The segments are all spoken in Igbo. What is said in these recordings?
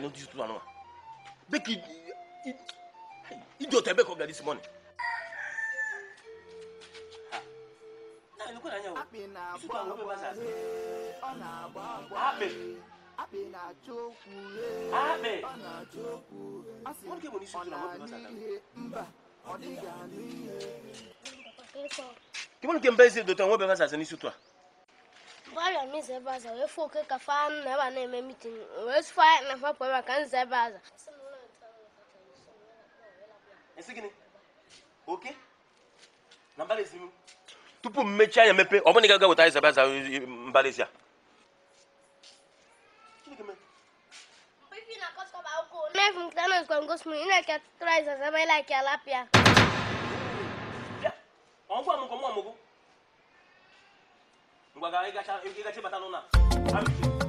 nyane di tutu anuma beki ijo tebe ko gadi simone akpị na-agba akpị na-achọ okwu ọ na-achọ okwu ọ sị ọ na-anụ ihe mba ọ dịghị anụ ihe kemgbe nke mba eze dota nwe bebe asasị n'isi ụtụ a Bala mi zai baza, wai fo kai ka fa na ba na mai mitin, wai su fa na fa kwa kan zai baza. Esi gini? Oke? Na mbali esi mu? Tupu mmechi anya mepe, ọ bụ na ị ga-aga weta anyị zabaza mbali esi a? Mwen fwen kita nan skwan gos mwen, ina kya tutura isa zama ila kya lapya. Ya, an kwa mwen kwa mwen Mwa gare gacha, yon ki gache batalona. Amin.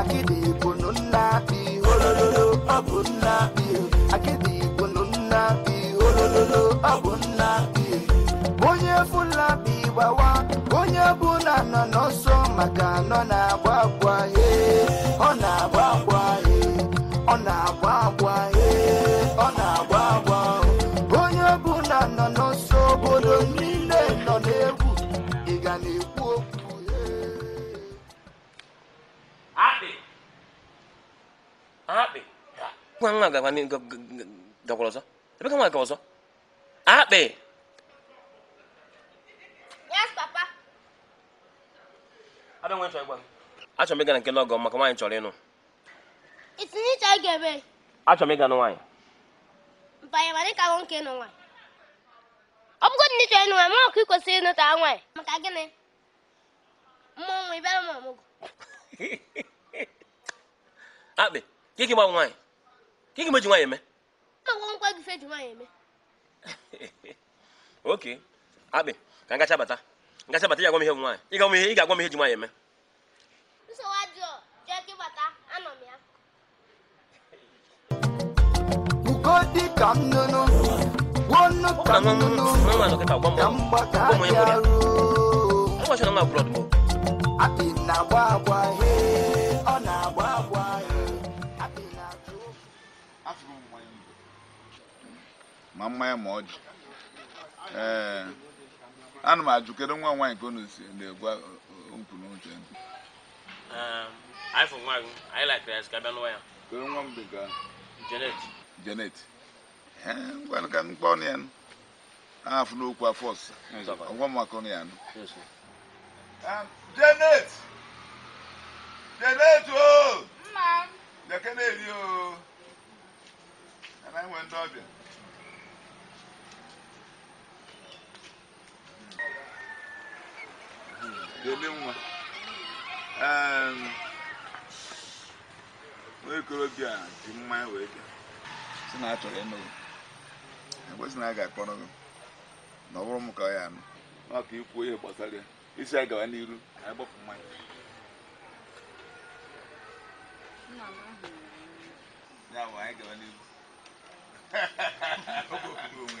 akịdị igbonu nna bi olololo ọ bụ nna bi akịdị igbonu nna bi olololo ọ bụ bi onye fụla bi gbawa onye ọbụla nọ n'ọsọ maka nọ na-agba agba he ọ na-agba agba 강화가 관련 그, 그, 그 더불어서 왜 강화가 거워서 아 네. Yes, Papa. I don't want to go. Achọ m ịga na nke n'ọgọ maka nwaanyị chọrọ ịnụ. Itinye iche a ga-eme. Achọ m ịga na nwaanyị. Mpanye ma dịka nwoke ịnụ nwaanyị. Ọ bụgodị na ịchọ ịnụ nwaanyị, mara ọkụ ị kwesịrị ịnụta nwaanyị. Maka gịnị? Mmụọ nwa ịbịara m ọmụgwọ. Akpị, gị gị gbanwe nwaanyị. ka ị ga-emeji nwaanyị eme gị eme oke akpị ka ngacha bata ngacha bata ị gwa m ihe nwaanyị ị ga m ihe ị ga-agwa ihe ji nwaanyị eme nsogbu ajọ jee gị bata anọ m ya na-agba agba ọ na-agba agba ma ya ma ọ jụ ana m ajụ nwa nwaanyị ka si na okwu nwa ka Janet ngwanụ ka ọnụ ya afụ n'okwu afọ ọsịsa ọgwa maka ọnụ ya nụ. Ah, Janet Janet o Jeke na-eri ndị ọbịa. ga-eme nwa um nwa ehm, okorobịa dị mmanya wee bịa si na a chọrọ ebe si na a ga-akpọrọ gị na ọ bụrụ m ka ya anụ maka ikwu ihe gbasara ya isi a gawa n'iru anyị gbapụ mmanya ya bụ anyị gawa n'iru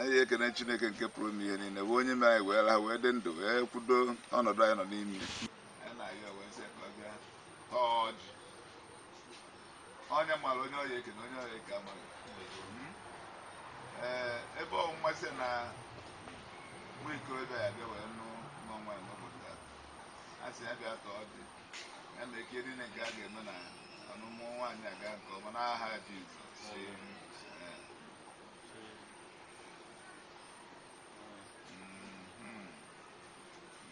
anyị ekene chineke nke pụrụ ime ihe niile bụ onye me anyị wee la wee dị ndụ wee kwudo ọnọdụ anyị nọ n'ime onye mara onye ọya ekene onye ọya eke amaghị hmm. ee ebe ọnwụnwa si na nwa ikorobịa ya bịa wee nụ n'ọnwa ya n'obodo a sị ya bịa ka ọ dị ya na eke niile nke a ga-eme na ọnụmụ nwaanyị aga nke ọma n'aha Jizọs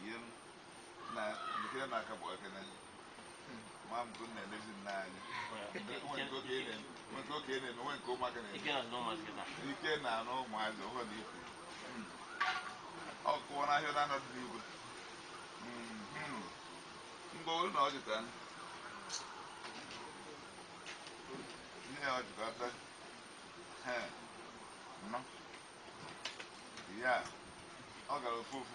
yam na mutira na ka bo kana ma mu kun na ne jin na ni wani ko ke ne wani ko ke ne wani ko ma kana ike na no ma kana ike na no ma zo ho ni o ko na yo na no di bu mbo na o jitan ni na o jitan ha no ya ọ gara ofu ofu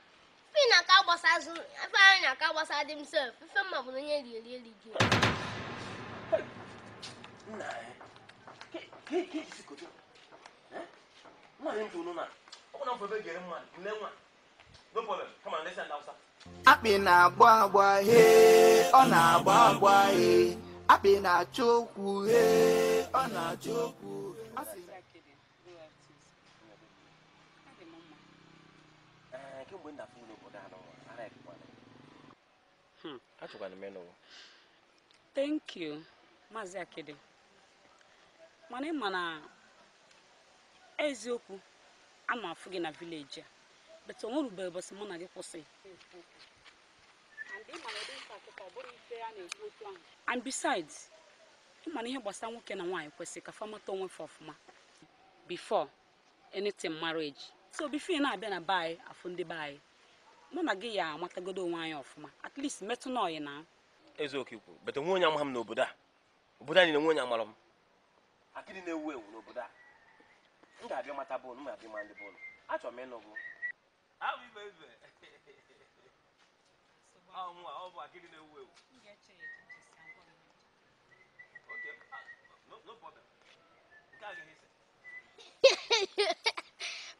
ife na-aka agbasa azụ na agbasa dị m sef mma bụ na onye riri eri gị akpị na-agba agba he ọ na-agba agba he akpị na-achọ okwu he ọ na-achọ okwu kemgbe nna furu n'obodo a hmm, n'ụwa ara ekekwana achọkwana m ịnụwa thank you maazị akidi mana ịma na eziokwu ana afụ gị na vileji a bete onwe rubere ụbọchị mụ na gị kwụsị and besides ịma na ihe gbasara nwoke na nwaanyị kwesịrị ka famata onwe fọ ọfụma before anything marriage so bifo na-abịa na be anyị ndị be anyị mụ na gị ya amatagodo onwe anyị ọfụma at least metụ na ọyị na ezeoke kwuru bete nwe onye amaghị m n'obodo a obodo anyị na-enwe onye amara m akịrị na-ewu ewu n'obodo a m ga-abịa mata bọọlụ m ga-abịa ma ndị bọọlụ achọ m ịnụ bụ Okay. Ah, no problem.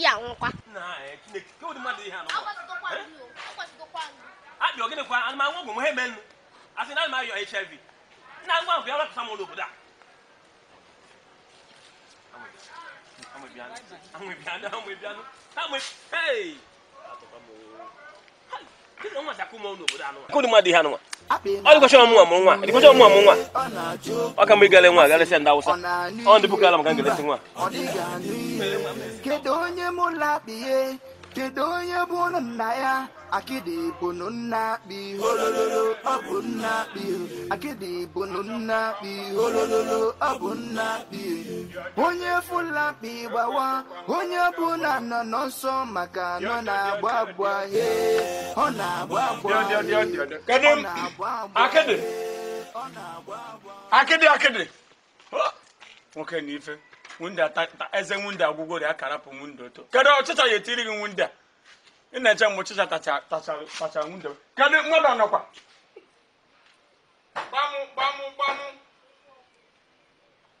ya nkwa na e, chineke ke wode mmadụ ihe anabịa ogene kwa ana anwa ọgwụ m ha eme nnu asị na ana m ayọ hiv nna ngwa ahụ ya wapụta m ụlọ obodo a amwebianụ amwebianụ amwebianụ amwe hey akụ mmadụ ihe anụnwa ọ dịkọcha ọmụnwa mụrụ nwa dịkọcha ọ ka mgbe ịgale nwa galesịa ọ ndị nwa kedu onye bụ nna ya akịdị bụnụ nna akpị holololo ọ bụ nna akpị akịdị bụnụ nna akpị holololo ọ bụ nna akpị onye fụla akpị gbawa onye bụ na nọ n'ọsọ maka nọ na-agba agba he ọ na-agba agba ọ na-agba agba akịdị akịdị nwoke na ife wunde ta eze wunde agwụgwọ ri akara wunde oto kedu ọchịcha ya etiri gị wunde a ị na-eche mgbe ọchịcha tacha wunde kedu mmadụ nọkwa gbamụ gbamụ gbamụ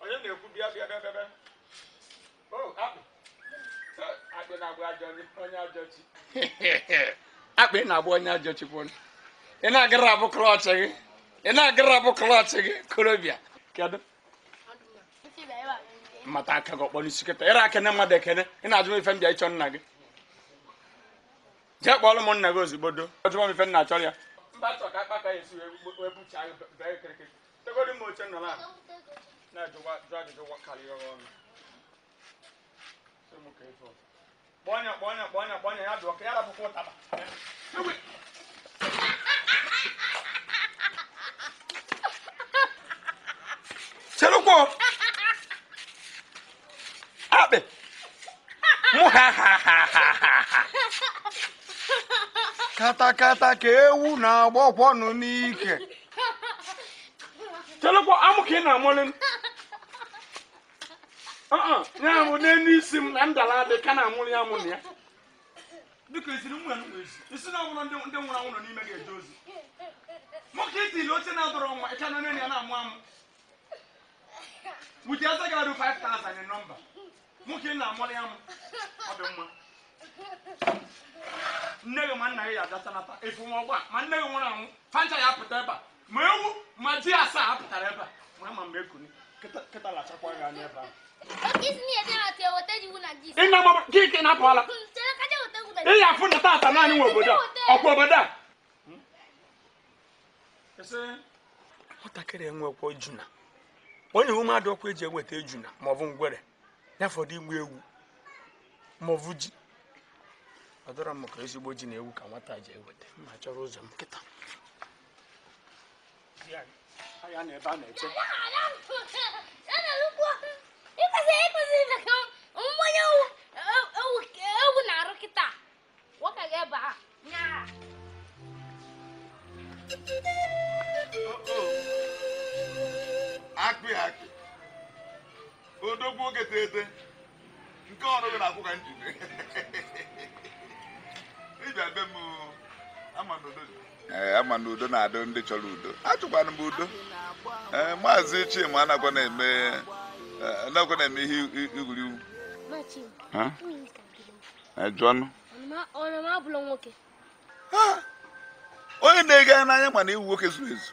onye na-ekwu bịa bịa bịa bịa akpị na-agba onye ajọ ị na-agara abụ gị ị na-agara abụ gị kedu mmata aka gị ọkpọrọ isi kịta ịra akene mmadụ ekene ị na-ajụ m ife m bịa ịchọ nna gị jee kpọọrọ m nna gị ozugbo do ọjụọ m ife nna achọrọ ya kpọnya kpọnya ya jụọ ka ya ụtaba kata katakata ka ewu na no n'ike chelekwa amụ ka ị na ah, na mo uh-uh, ne ni sim na ndala adị ka na-amụlị ya amụ na ya dịka isiri nwe isi na ọbụla ndị nwụrụ anwụ nọ ni mege dozi. Mo ke ti lo oche na-adọrọ nwa ịka e nọ ne ya na-amụ Mu ti asa ga do 5000 number. nwoke na-amụrụ ya ọ dị mma nne gị ma nna gị ya adatanata efu nwa ọgba ma nne gị nwụrụ anwụ fanta ya apụta ebe a ma ewu ma ji asaa apụtara ebe a ma ama mgbe ekuni kịta lachakwa gị anya ebe ahụ gị ka na-apụala ị ya afụ na tata naanị nwe obodo a ọkwa obodo a hmm? nwatakịrị enwekwa ejuna onye iwu mmadụ ọkwa eji eweta ejuna maọbụ ngwere ya fọdụ igbu egwu ma ji ọ dọrọ m ka ezigbo ji na ewu ka nwata ji eweta ma chọrọ ụzọ m odogwu oge tete nke ọrụ na-akwụ ka m ama na eh, na udo na-adị ndị chọrọ udo achụkwana m udo ee eh, maazị chima anakwa na-eme eh, anakwa na-eme ihe igwuriwu onye na-ege n'anya mana iwu nwoke zuru ezu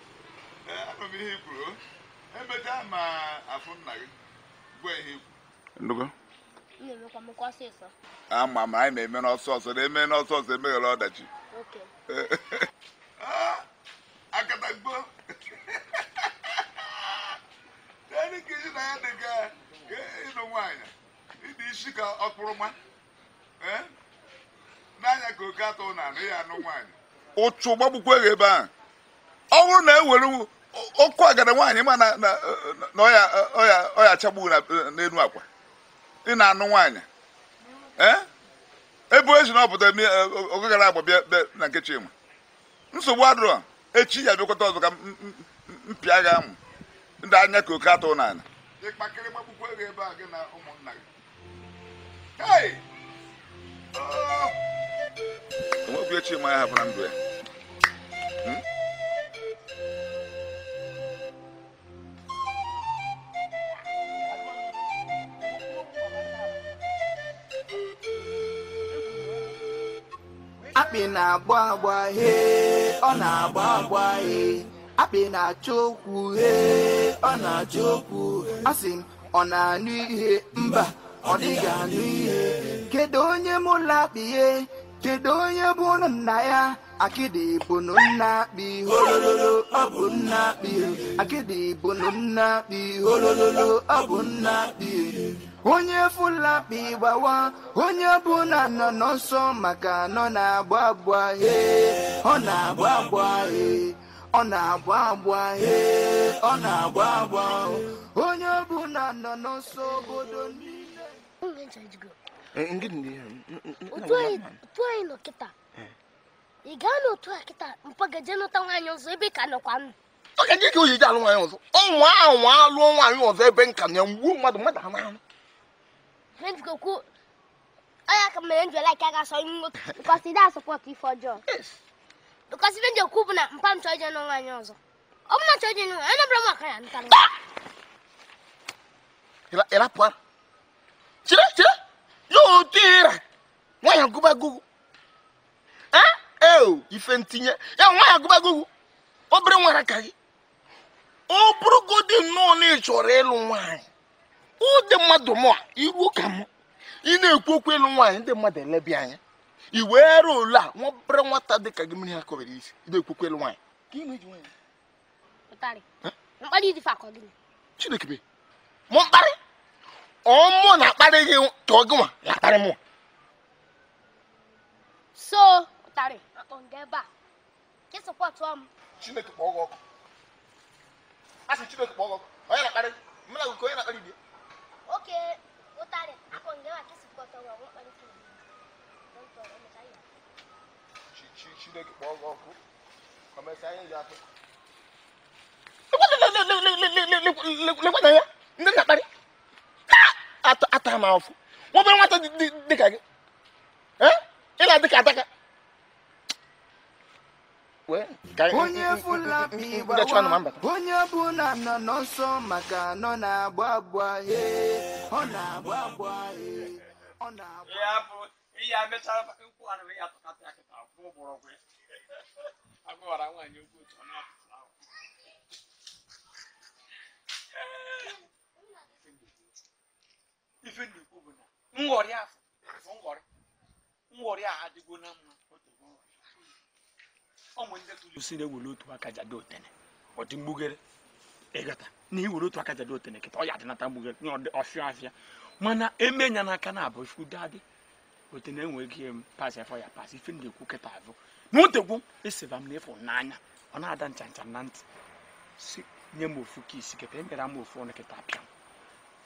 e m ihe kwuru e ma afụ nna gị ihe i kwuru ama m anyị na-eme n'ọsọ na-eme n'ọsọ ọsọ ọdachi akatagbo dị ka oke atọ na anụ ya anụ nwaanyị ụchụ gbagbukwe ebe a ọ bụrụ na ewere ọkụ agada nwaanyị ma na ọya achagbu n'elu akwa ị na-anụ nwaanyị e? ebe ezi na ọ pụta oge gara agba bịa na nke Chima nsogbu adịrọ echi ya bịakọta ọzọ ka mpịa gị amụ ndị anya ka oke atụ n'ala enwekwu echi ma ya hapụra ndụ ya akpị na-agba agba he ọ na-agba agba he akpị na-achọ okwu he ọ na-achọ okwu asị m ọ na-anụ ihe mba ọ dịghị anụ ihe kedu onye ụlọ akpị he kedu onye bụ ụnụ nna ya akịdị bụnụ nna akpị holololo ọ bụ nna akpị akịdị bụnụ nna akpị holololo ọ bụ nna akpị onye fulakpi gbawa onye bụ na nọ n'ọsọ maka nọ na-agba agba he ọ na-agba agba he ọ na-agba agba he ọ na-agba agba onye bụ na nọ n'ọsọ obodo niile ngini utwaino kita igano otwa kita mpagajeno ta nwaanyị ọzọ ebe ka nọkwanụ oge ndị ka o ji alụ nwaanyị ọzọ ọnwa anwa alụọ nwaanyị ọzọ ebe nka na gbuo mmadụ mmadụ anụ anụ mejikokwu onye aka mere njọ laik aga asọ nwoke bikọsi dị asọpọtụ ife ọjọọ bikọsi ndị njọ kwu bụ na mpa m chọọ ije nụ nwaanyị ọzọ ọ bụ na chọọ ije nụ nwaanyị anabara m aka ya ntara ịrapụ ara chere chere yotira nwanyị agụba gugu eo ife ntinye ya nwanyị agụba gugu obere nwara ka gị ọ bụrụgodị nnọọ na ị chọrọ ịlụ nwaanyị ụdị mmadụ mụ iru ka m ị na-ekwu okwu ịlụ nwaanyị ndị mmadụ elebi anya i were ole a nwabere nwata dị ka gị mmiri ha kọbere isi ị na-ekwu okwu ịlụ nwaanyị chineke be mụ mkparị ọmụ na-akparị gị tụọ ya so akpọ nga ebe chineke kpọọ gị ọkụ asị chineke kpọọ gị ọkụ onye na-akparị mụ na onye na ihe atụ ya ndị na ata m afọ nwa nwata dịka gị eh? ị na-adị ka adaka onye ọbụla nọ n'ọsọ maka nọ na-agba agba ọ na-agba agba ọ na-agba ife na-ekwu bụ na nghọrị afọ nghọrị nghọrị a adịgo na mma ọnwe ndị ewere e otu aka jado otene mgbugere na iwere otu otene kịta ya mgbugere nye ọfịa afịa mana eme nya n'aka na abụ chukwu dadị otene enweghị pas ya ife ndị ekwu kịta avụ na otegwu eseva m n'efu n'anya ọ na-ada ncha ncha na ntị si nye m ofu ka isi kịta emere m ofu ọnụ kịta apịa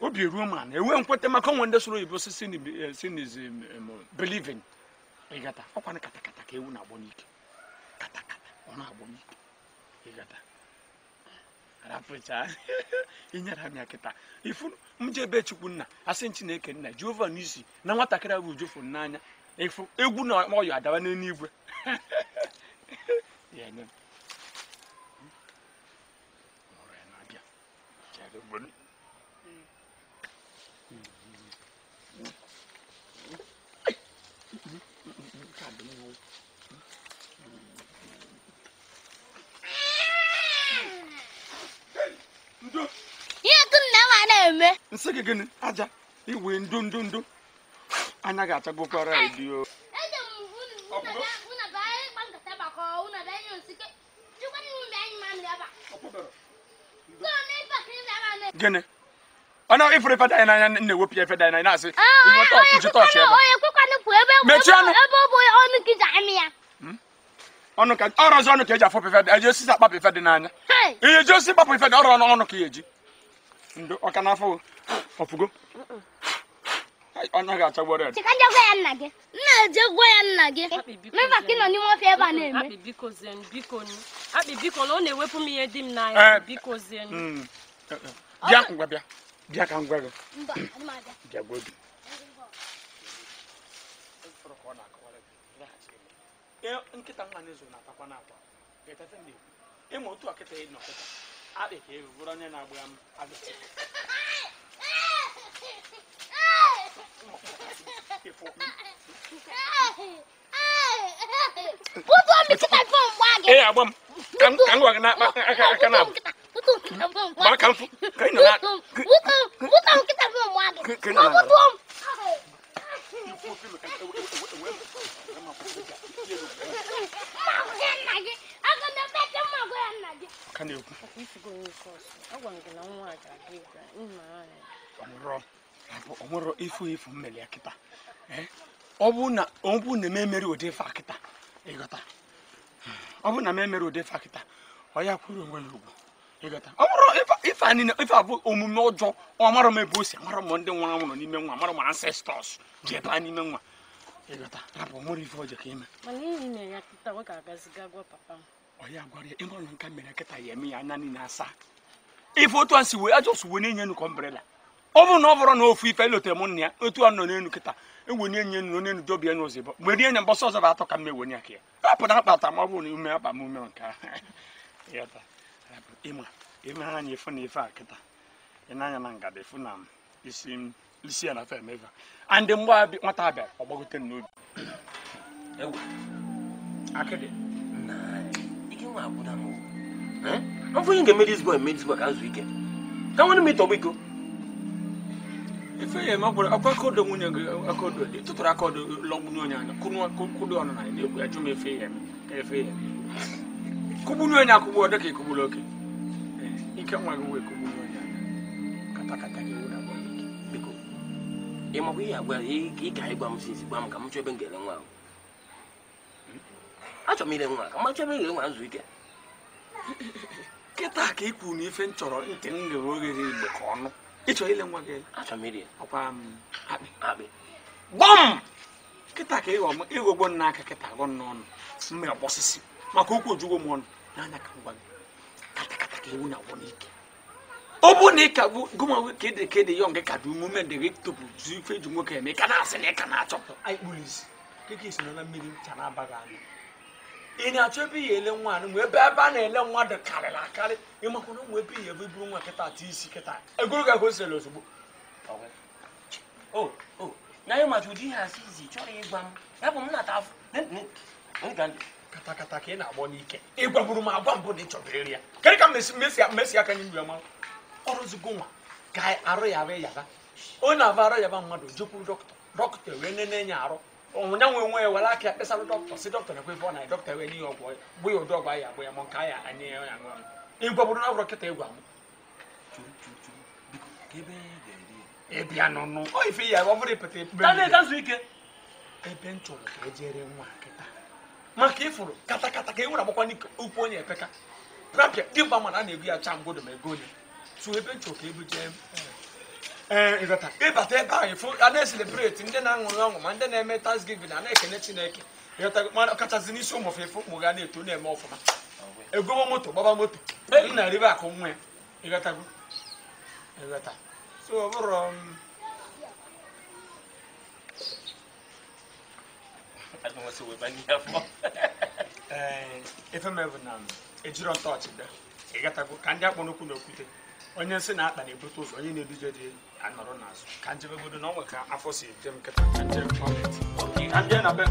obi eruo ma na ewe nkwete maka onwe ndị soro oyibo sinis eh, belivin ịgata ọkwana katakata ka ewu na-agbọ n'ike katakata ọ na-agbọ n'ike ịgata ah, rapụcha inyere ha ya ifu m ebe chukwu nna asị chineke nna jehova n'isi na nwatakịrị ahụ ujofu n'anya ifu egwu na ọyọ adawa n'eluigwe Yeah, no. All right, I'll be. na-eme nsị gị gịnị aja iwe ndụ ndụ ndụ anya gị achagokwara edio gịnị ọ na ife danyị n'anya na-ewepụ ya ife danyị na-asị mechie ọnụ hmm? ọnụ ka ọrọzi ọnụ ka eji afọpụ ife eji osisi akpapụ ife dị n'anya ihe eji osisi kpapụ ife dị ọrụ ọnụ ọnụ ka ya e eji ndo ọka n'afọ ọfụgo ọnya ga-acha gbọrọ ya gwa ya nna gị nna eje gwa ya nna gị meba ka nọ n'ime ebe a na-eme akpị biko na ọ na-ewepụ m ihe di m n'anya eh, biko zie hmm, eh, eh. na-ezo na-atakwa akpịka elu bụrụ onye na-agba ya agbịsị Put on me to my phone, Waggy. Hey, I'm can can work na aka aka na. Put on kita phone, Waggy. Ba kan fu. Kai na. Put on put on kita phone, Waggy. Kai na. Put on. Mama, can I get ka na-ekwu ọ ifu ifu mmeli ya kịta ọ bụ na m ụdị ife akịta ịghọta ọ bụ na m ụdị ife akịta kwuru onwe ya ugwu ịghọta ọ bụrụ ife niile ife abụ omume ụjọ ọ mara m ebe o si m ndị nwa nwụrụ n'ime nwa amara m ancestors ji ebe a n'ime nwa ịghọta rapụ ọ ife ọjọọ ka ime ọ ya gwara ya ịmụrụ nka mere nkịta ya eme ya anya niile asaa ife otu a si wee ajọ si wee na-enye enu kọmbrela ọ bụrụ na ọ bụrụ na ofu ife e lotere m nna ya otu a nọ n'enu nkịta ewe na-enye enu onye nudobia n'ụzọ ịbọ mgbe rie nye mbọsọ ọzọ bụ atọ ka m ewenye ka ya rapụ na akpata ma ọ bụrụ na ume akpa m ume nke ịma emeghe anya efu na ife a kịta ị na na ngada efu na isi isi ya na fe emeva andị mgbe nwata abịa ọ gbagote n'obi akịdị nwa akwụda m ọ bụghị ga-eme dis boy mee dis boy ka nzu ike ka nwanne m ịtọgbọ iko ife ya ma gwara akwa kodo nwunye do. akodo tụtụrụ akodo do. n'onye anya kwụdo ọnụ na ya na do. ya jụ m efe ya ka efe ya kụgbu n'onye akwụgbu ọ dịka ịkụgbula oke eh, ike nwa gị wee kụgbu n'onye anya katakata gị wụda biko ị makwa ihe agwa ị ga-agwa m sinsi gwa m ka m chọọ ebe m ga-ele nwa ahụ achọrọ m ile nwa ka macha ebe nwa nzu ike kịta ka ị na ife m chọrọ ntị m ghere oghere igbo ka ọnụ ịchọrọ ile nwa gị achọrọ m iri ọkwa m akpị akpị gbọm kịta ka ịghọgbo nna aka kịta gọ n'ọnụ mma maka okwu m ọnụ n'anya ka ngwa gị katakata ka ewu na-agwọ n'ike ọ bụ na ị ka bụ gụma ka ịdị ka ịdị ka dị ndị gị ife eji nwoke eme ka na-asị na ị ka na-achọpụ ị na-achọ ebe ihe ele nwa mgbe ebe ebe a na-ele nwa dị karịrị akarị ịmakwa na ụmụ ebe ihe ebe buru nwa kịta atụ isi kịta egoro ga hoselu ozugbo na ihe mata ụdị ihe asị izi chọrọ ịgwa m ya bụ m na-ata afọ katakata ka ị na-agbọ n'ike ịgwagburu m agwa mbụ na ị chọrọ iri ya Kedu ka mmesi aka nye mgbe ọrụ ọrụzigo nwa ka arụ ya arụ yaba onye na-aba arụ yaba mmadụ jekwuru dọkịta dọkịta wee nene ya arụ nya nwe nwe were aka kpesara dọkịta si dọkịta ekwe na dọkịta e e e wee nye ya ọgwụ bụ ya ụdị ọgwụ anyị ya mụ nke anyị ya ya ṅụọ ịgwa bụrụ na ọgwụrụ kịta ịgwa ihe ịbịa ya ọ bụrụ ịpụta ike ebe m chọrọ ka ejere nwa kịta maka ịfụrụ ka e nwere agbakwa onye epeka prapịa dimgba mana a na-egbu ya mgbodo ma ego onye tụ ebe m chọrọ ka ebu jee ịbata eh, ebe ahụ ịfụ a na-eselebreti ndị na-aṅụrị ọṅụ ma ndị na-eme tasgivin a na-ekene chineke ọkachasị n'isi ụmụ ụmụfefe ụmụ ga na-eto na-eme ọfụma egobo moto gbaba moto um, elu eh, na ribe um, akụ nwa ya ịghọtago so efemebụ na ejiro ntọọchị bịa ịghọtago ka ndị akpọ n'okwu na okwute onye nsị na-akpa na-ebute ụzọ onye na-eduje dị elu anọrọ n'azụ ka njebegodo na ọ nwe ka afọ si eje m nkịta ka nje kpọmit ok ka nje na be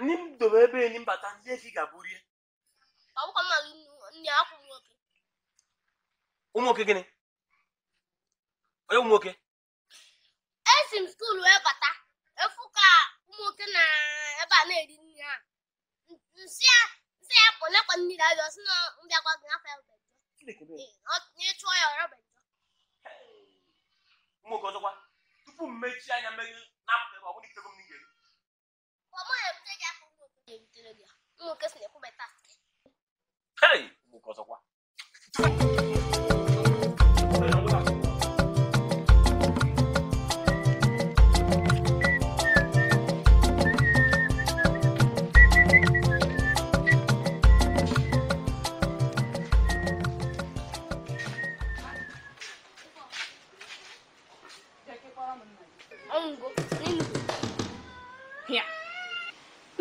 ni m dobe ebe enyi mbata ndị efi ga-abụrie ọbụkọ mmadụ ndị akwụghị ụmụ nwoke gịnị onye ụmụ nwoke esi m skuul wee bata efu ka ụmụ nwoke na ebe a na-eri nri ha nsị ya pụ lekwa mmiri ajọ si na mbịakwa gị afọ ịchụọ ya ọrọ ụmụ nwoke ọzọkwa tupu m mechie anya mmeri na-apụta ebe ọ bụrụ ikego m n'ihe gị aka si na-ekwubata Hey! Ụmụ nwoke ọzọkwa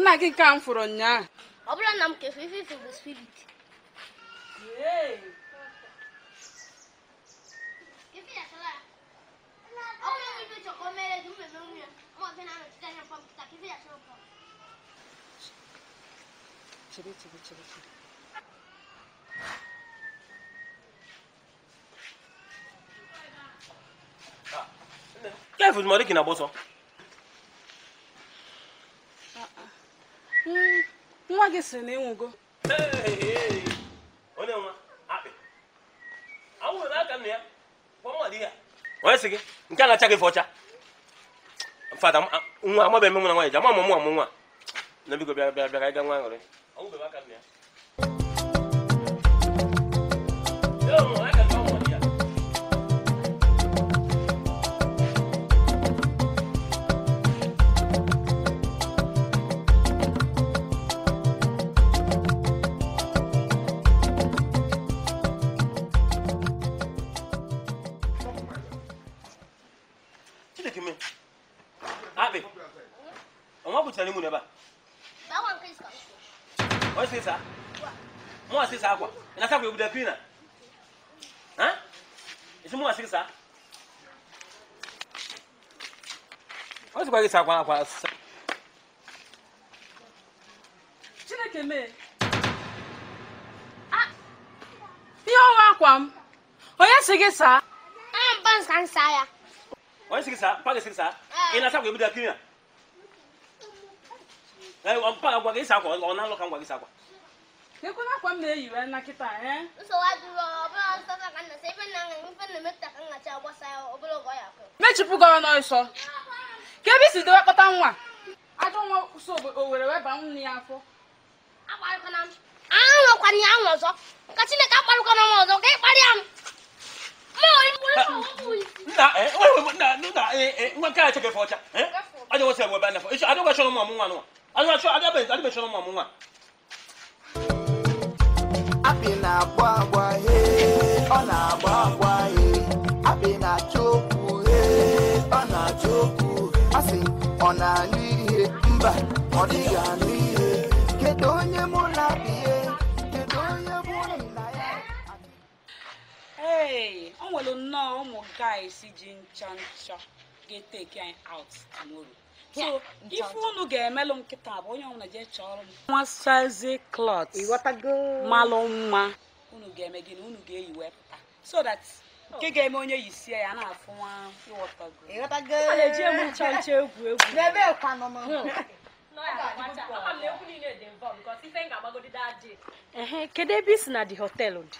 nna gị nke a m fụrụ nnyaa ọ bụrụ na m nwa gị sịrị na ịnwụgo onye nwa akpị anwụrụ n'aka nna ya kpọnwa di ya onye sị gị nke a na-acha gị fọcha fada nwa amabeghị m nwa nwaanyị ji ama mụ nwa mụ nwa na biko bịa bịa bịa ka anyị ga nwa aṅụrị anwụbeghị aka nna ya obudapina hein ese ah, ya ya ya Ah? saa ọ sịkwa gị saa akwa akwa saa chineke Ah? ihe ah, akwa m Ah! sị gị Ah? ah, m ka m Ah, ya onye sị gị saa Ah? gị sị gị saa ị na-asa akwa obudapina ee mpa gị agwa gị saa ekwe na akwa m na-eyiwe eh? na kịta ee mechipụgo ọnụ nsọ ka ebe isi dowe kpọta nwa ajọ nwa kwụsị owere weba nne ya afọ nwa akpị na-agba agba he ọ na-agba agba he akpị na-achọ okwu he ọ na-achọ okwu asị ọ na-anụ ihe mba ọ dịghị anụ ihe kedu onye mụ na-abịa Hey, o nwere nnọọ ụmụ guys ji ncha ncha ga-eteki anyị out tomorrow. so ife unu ga-emelụ nkịta bụ onye ọbụla jee chọrọ m nwasazi klọt malụ mma unu ga-eme gị na unu ga-eyi wepụta so that nke oh. ga-eme onye yisie ya na-afụ nwa ịghọtago eji ncha ncha egwu egwu kedu ebe i si na di họteelụ dị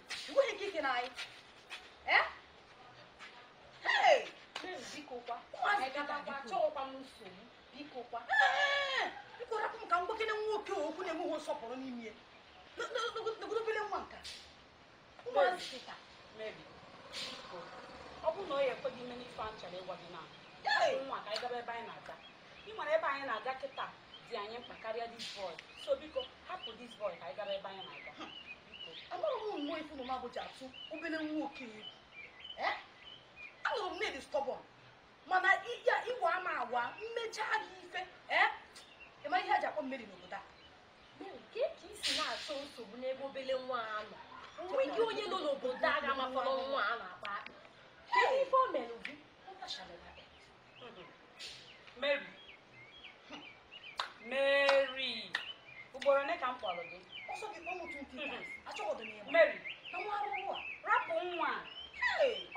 nwere ike ike na anyị bikokwa achọghịkwa m nsogbu bikokwa biko rapụ m ka mgbakene nwoke okwu na-enweghị nsọpụrụ n'ime ya n'ogologo nwa nka ụmụazị ọ bụrụ na ọ ya ekweghị ime n'ife anyị chọrọ ịgwa nwa ka ebe anyị na-aga ị nwere ebe anyị na-aga kịta dị anyị mkpa karịa dis boy so biko hapụ dis boy ka anyị ebe anyị na-aga amara m nwa ifu na maboji atụ obere nwa okenye anụrụ m nedi stọbọn mana ya ịwa ama awa mmecha gị ife ịma ihe a ji akpọ mmeri n'obodo a nke ka isi na-achọ nsogbu n'ebe obele nwa a nọ nweghị onye nọ n'obodo a ga-amafọrọ nwa a na-akpa akpa kedu ife o mere gị Mary Mary ugboro ole ka m kpọrọ gị ọsọ gị kpọọ m otu nke taa achọgọdọ m ya mary nwa arụrụ a nwa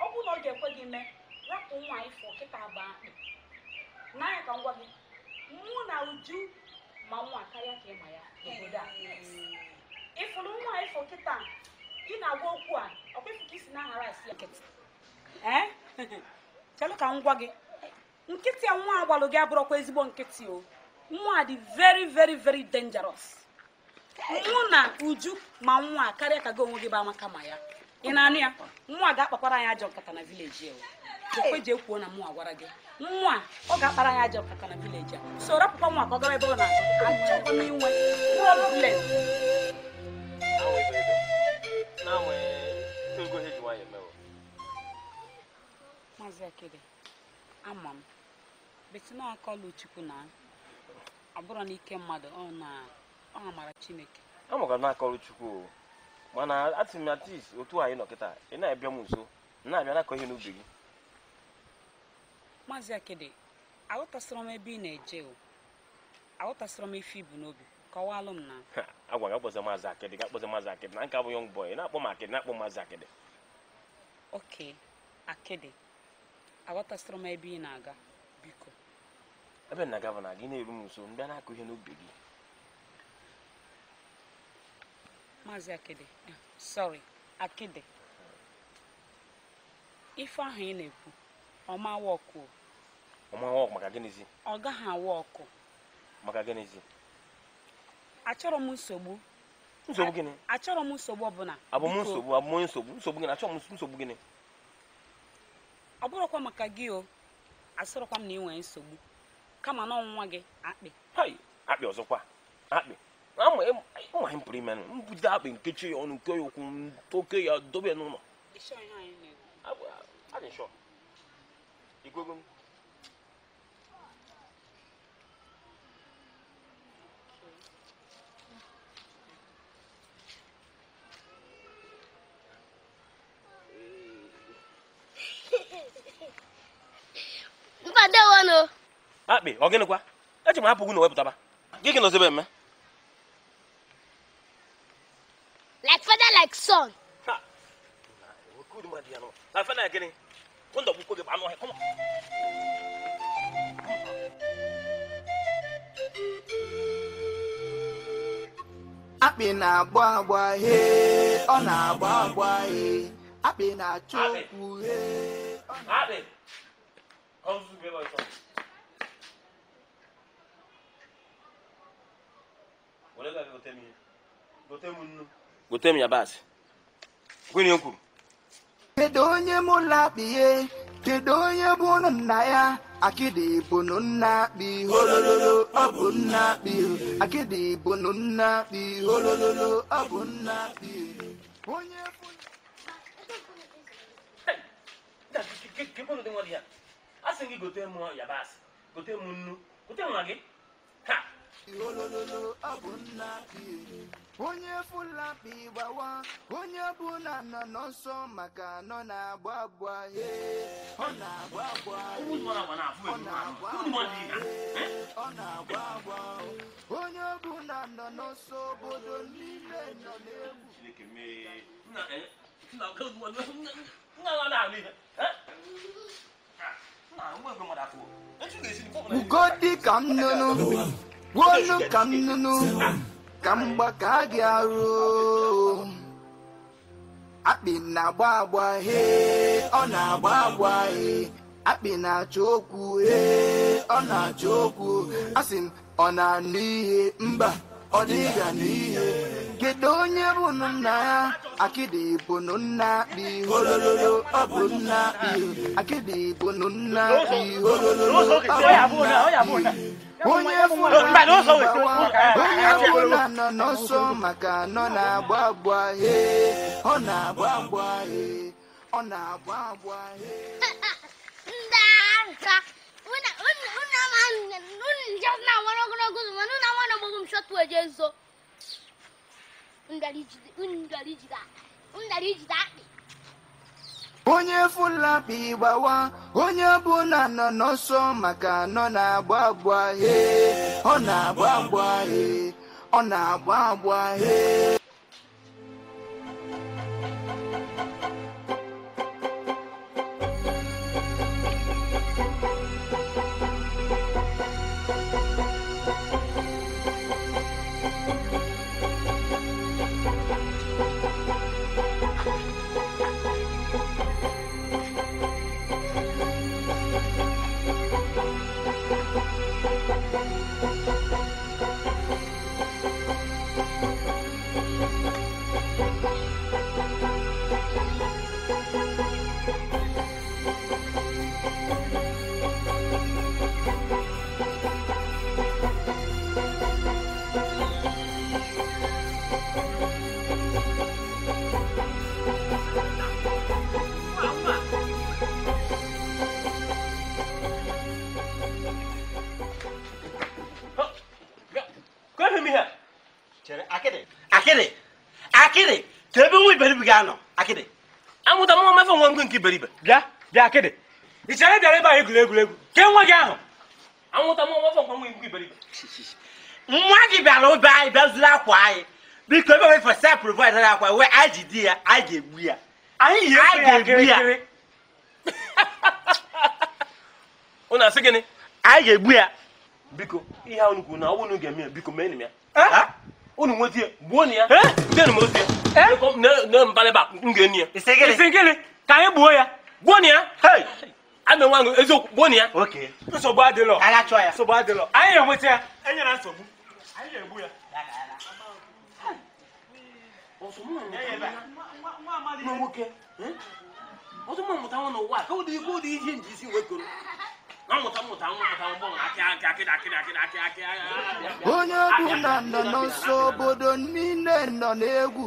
ọ bụrụ na ọ ga-ekwe gị mee rapụ nwa ịfọ kịta agba akpị n'anya ka m gwa gị mụ na uju ma nwa karịa ka ịma ya obodo a ịfụrụ nwa ịfọ kịta ị na-agwa okwu a ọkwa ịfụ ka isi na-aghara asị ya chelụ ka m gwa gị nkịtị a nwa agbalụ gị abụrụkwa ezigbo nkịtị o nwa dị veri veri veri dangerous mụ na uju ma nwa karịa ka gị onwe gị ba amaka ma ya ị na-anụ ya nwa ga-akpakwara anyị ajọ nkata na vileji o ekwe ji ekwuo na mụnwa gwara gị nwa ọ ga-akpara anyị ajọ nkata na vileji a so rapụkwa nwa ka ọ gara ebe ọ na-achọkwa n'inwe problem maazị akịrị ama m betina akọlụ chukwu na ọ bụrụ mmadụ ọ na ọ mara Chineke amụkara n'aka ọrụ Chukwu mana atị m atis otu anyị nọ kịta ị na-abịa m nso na-abịa n'akọ ihe n'ubi gị maazị akede aghọtasịrọ m ebe ị na-eje o aghọtasịrọ m ife ibu n'obi kọwalụ m na agwa gị akpọza maazị akịdị gị akpọza maazị akịdị na nke abụ yọng bọị na-akpọ m akịdị na-akpọ maazị akịdị oke akịdị aghọtasịrọ m ebe ị na-aga biko ebe na-aga bụ na gị na-eru m nso m bịa n'akọ ihe n'ubi gị maazị akide sorry akide ife ahụ ị na-ekwu ọma wọkụ ọma wọkụ maka gịnịzi ọ gaghị awa ọkụ maka gịnịzi achọrọ m nsogbu nsogbu gịnị achọrọ m nsogbu ọbụla abụ m nsogbu abụ m nsogbu nsogbu gịnị achọrọ m nsogbu gịnị ọ bụrụkwa maka gị o asọrọkwa m na ị nwere nsogbu kama na ọnwụnwa gị akpị akpị ọzọkwa akpị ịmaghị mpụrụ ime mbudo akpị nkechi ya ọnụ nke ya ụkwụ toke ya dobe n'ụlọ akpị ọ gịnịkwa eji m hapụ gị na wepụtaba gị gị nọzebe eme like son. Ha! Good man, on, come on, come on. Akpị na-agba agba hee, ọ na-agba agba hee. Akpị na-achọ okwu hee. Gote m nnu. gote m yabasị gịnị kwuru kedu onye mụ lakpịghe kedu onye bụ ụnụ nna ya akịdị bụnụ nna akpị ọ bụ nna akịdị nna holololo ọ bụ nna onye gị gote yabasị gote nnu gote olololo ọ bụ nna onye fụla kpi gbawa onye bụ na nọ nọ nsọ maka nọ na-agba agba ọ na-agba agba eh? ọ na-agba agba onye bụ na nọ n'ọsọ obodo niile nọ n'egwu ugo dị ka nnụnụ gwuolu ka nụnụ ka mgbaka gị arụ akpị na-agba agba he ọ na-agba agba he akpị na-achọ okwu he ọ na-achọ okwu asị m ọ na-anụ ihe mba ọ dịghị anụ ihe kedu onye bụ nna ya akịdị bụ nna akpị holololo ọ bụ nna akpị akịdị bụ nna akpị holololo ọ bụ nna akpị onye ọbụla nọ n'ọsọ maka nọ na-agba agba he ọ na-agba agba he ọ na-agba agba he onye Fulani gbawa onye na nọ n'ọsọ maka nọ na-agba agba he ọ na-agba agba he ọ na-agba agba he anọ akịdị amụta mụọ mmefe nwa ngwe nke iberibe bịa bịa akịdị ị chere bịara ebe a egwuregwu ke nwa gị ahụ amụta mụọ mmefe nwa ngwe iberibe nwa gị bịara ụbe anyị bịa zuru akwa anyị biko ebe nwere fesa provid na akwa ji di ya anyị ga-egbu ya anyị yi ya ga-egbu unu asị gịnị anyị ga-egbu ya biko ihe unu kwuru na ọ unu ga-eme ya biko ya unu ya ya ne mpale ba ngeni isengele isengele ka ye buo ya buoni ya hey ame nwa ngo ezo buoni ya okay nsogbu adị lọ ala chọ ya nsogbu adị lọ anyị enweta ya enye na nsogbu anyị ga-egbu ya nwoke ọtụ mụ mụta nwa n'ụwa ka ụdị ikpe ụdị ihe nji isi wee koro onye bụ na nọ n'ọsọ obodo niile nọ n'egwu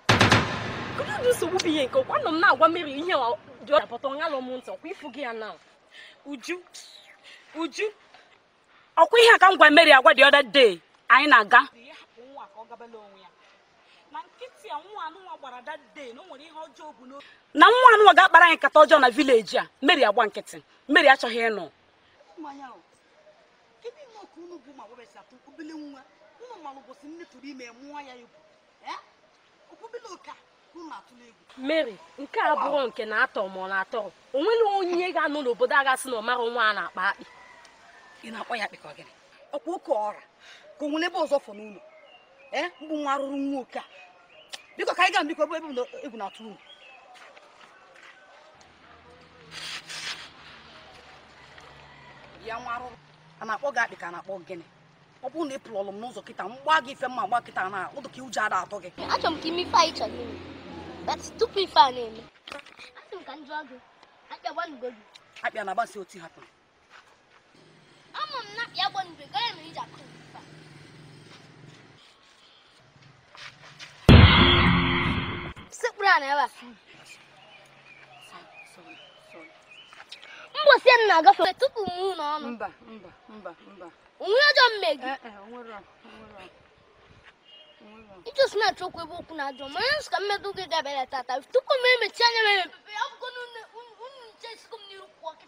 onye dị nsogbu ihe nke ọkwa nọ agwa mmeri dị ọdapụta ọnya lụ m gị ya na uju uju ọkwa ihe a ngwa m agwa dị dee anyị na-aga na nwa anụnwa ga-akpara anyị nkata na vileji a mmeri agwa nkịtị mmeri achọghị ịnọ ụmụ mmanụ nne mary nke a bụrụ nke na-atọ ma ọ na-atọ o nwere onye ga anụ n'obodo aghasị na ọ nwa a na-akpa akpị ị na ka ọkwa oke ọra ka ebe ọzọ fọ n'ụlọ ee mgbụ nwa arụrụ nwa a ka anyị gaa na akpọ gị ka a ọ bụrụ na ị pụlọlụ m n'ụzọ kịta m gbaa gị ife mma gba kịta na ụdụ ka ụjọ ada atọ gị achọrọ m ka ime ife anyị chọrọ ime but tupu ife a na-eme asị m ka m jụọ gị akpịa gbanugo gị akpịa na agbasi otu hapụ ama m na akpịa gbanugo gị ya mere iji akụ sekpụrụ a na ebe a mbosi ya nna agafe tupu m ụlọ ọnụ onwere ajọ mmegi ịjụ snatch okwu ebe okwu na-ajọ ma onye nsụka mmedụ gị gabịara tata tupu m emechi anya mere mpepe akwụkwọ unu nche sigo m n'iru kwụọ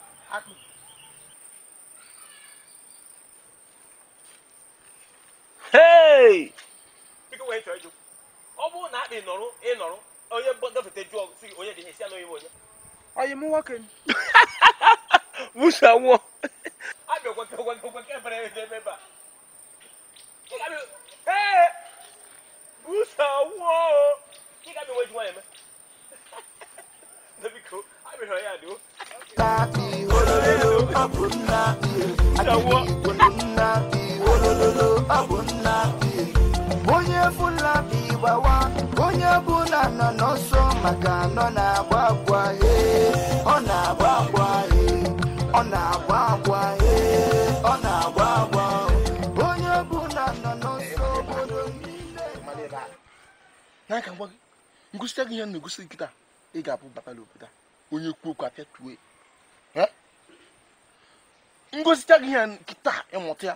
ọ bụrụ na akpị nọrụ ịnọrụ onye gafete jụọ sị gị onye dị ihe si onye m onye m nwoke ha ha nwụọ abịa gwake gwake ebe a ee Ha ha ha biko ya ololo nna onye bụla gbawa onye bụla nọ n'ọsọ maka nọ na-agba agwa e, ọ na-agba agwa e, ọ na-agba agwa e, ọ na-agba agwa onye nọ n'ọsọ obodo gị ihe na-egosi nkịta ị ga-abụ batala obodo onye kwuo okwu apịa tue ngosita gị ihe nkịta ịmụta ya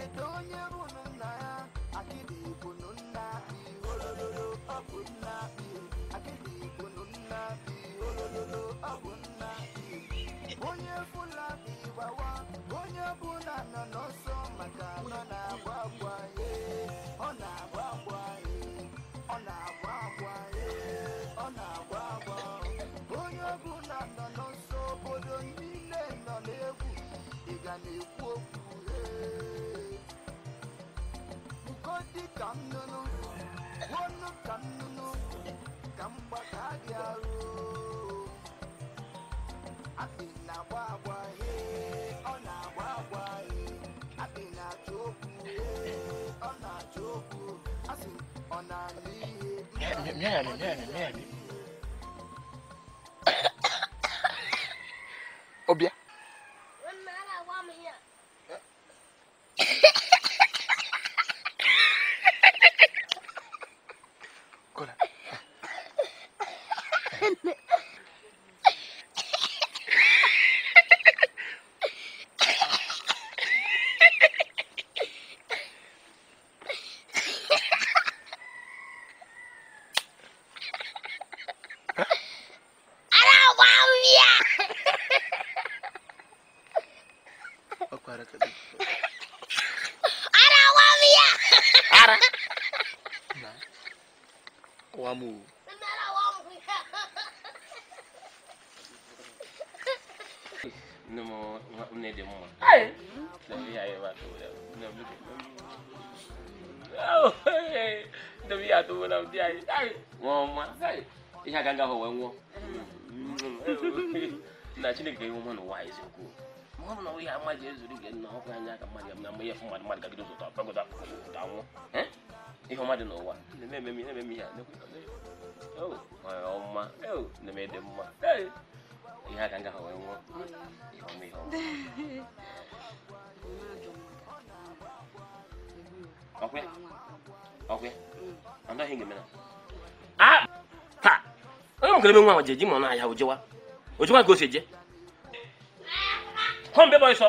kedu onye di kannunu wonu kannunu kamba kadiaro abi na agba agba he ọ na agba agba he abi na achọ he ọ na achọ okwu asị ọ na-alụ ihe. efu mmadụ mmadụ gagide ụzọ tọpụta ụta nwụ ihe ọma dị n'ụwa na-eme eme ihe mara ọma na-eme dị mma ihe aka nga ha wee nwụọ ihe ọma ihe ọma ọkwe ọkwe anaghị ga-eme na a taa onye mụkara ebe nwa ahụ ji eji mọ n'ahịa ojewa ojewa ka o si eje hụ mbe bụ ọsọ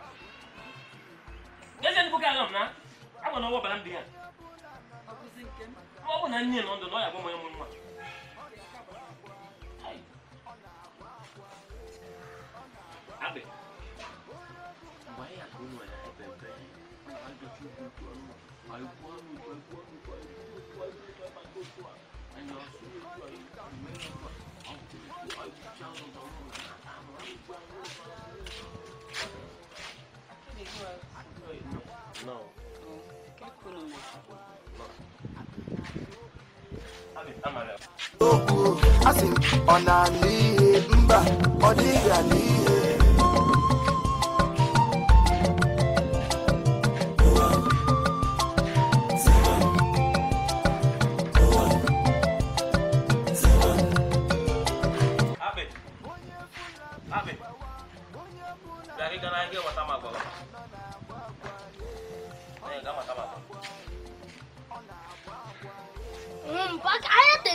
n'ezie ndịbụ aga m na agwa na ọwa ọbara m dị ya ọ bụ na nne nọ ndụ na ọ ya bụ manye m nwa okwu asị ọ na-ala ihe mba ọ dịghị ala ihe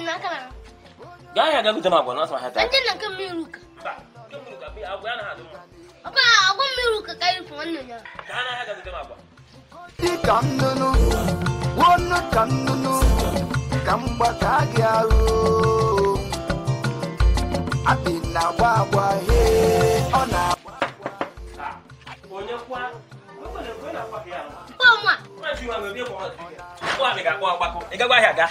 na kana ga ya ga gutama gwana sama hata anjin nan kan miruka ba kan miruka bi abu yana hadu ba agon miruka kai fu wannan ya kana ya ga gutama gwa ikandunu wonu kandunu kamba ka gyaru abi na gba gba he ọ na onye kwa Pọ̀ mwa. Pọ̀ mwa mi ga-akpọ agbakọ. Ị gagwa ahịa gaa.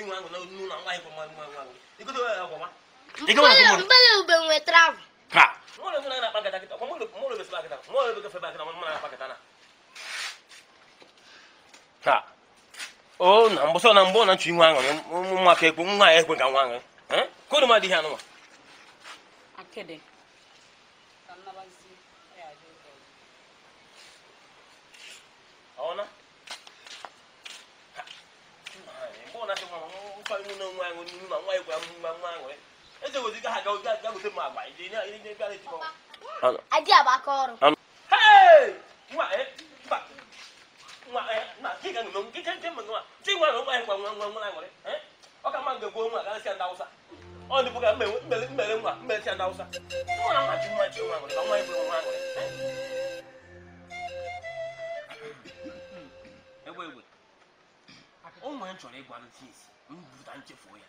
vinho angu não não não vai com mais mais angu e quando eu vou mais e como é que eu vou me trav cá mole mole na paga daqui como mole mole vai paga daqui mole vai fazer paga daqui mole na paga daqui cá oh não você não bom não vinho angu não não quer com não é com angu angu hein quando mais dia não aquele Ona? coi nó ngoan ngoan mà quay của em ngoan ngoan rồi cái tôi cái hạt rồi cái cái một mà bảy gì nữa cái cái cái anh chị à bà con hey ngoại bà ngoại mà chỉ cần nó cái cái cái mình mà chỉ ngoan nó quay ngoan ngoan ngoan ngoan rồi đấy có cái mang được quân mà cái xe đau sao ôi đi bộ cái mềm mềm mềm mà mềm xe đau sao nó làm mà chịu mà chịu mà rồi nó quay vừa ngoan rồi Ewé wè, ó mọ̀ ẹ́ ń sọ̀rọ̀ ẹgbàá ló ti yẹ sí. m buta ya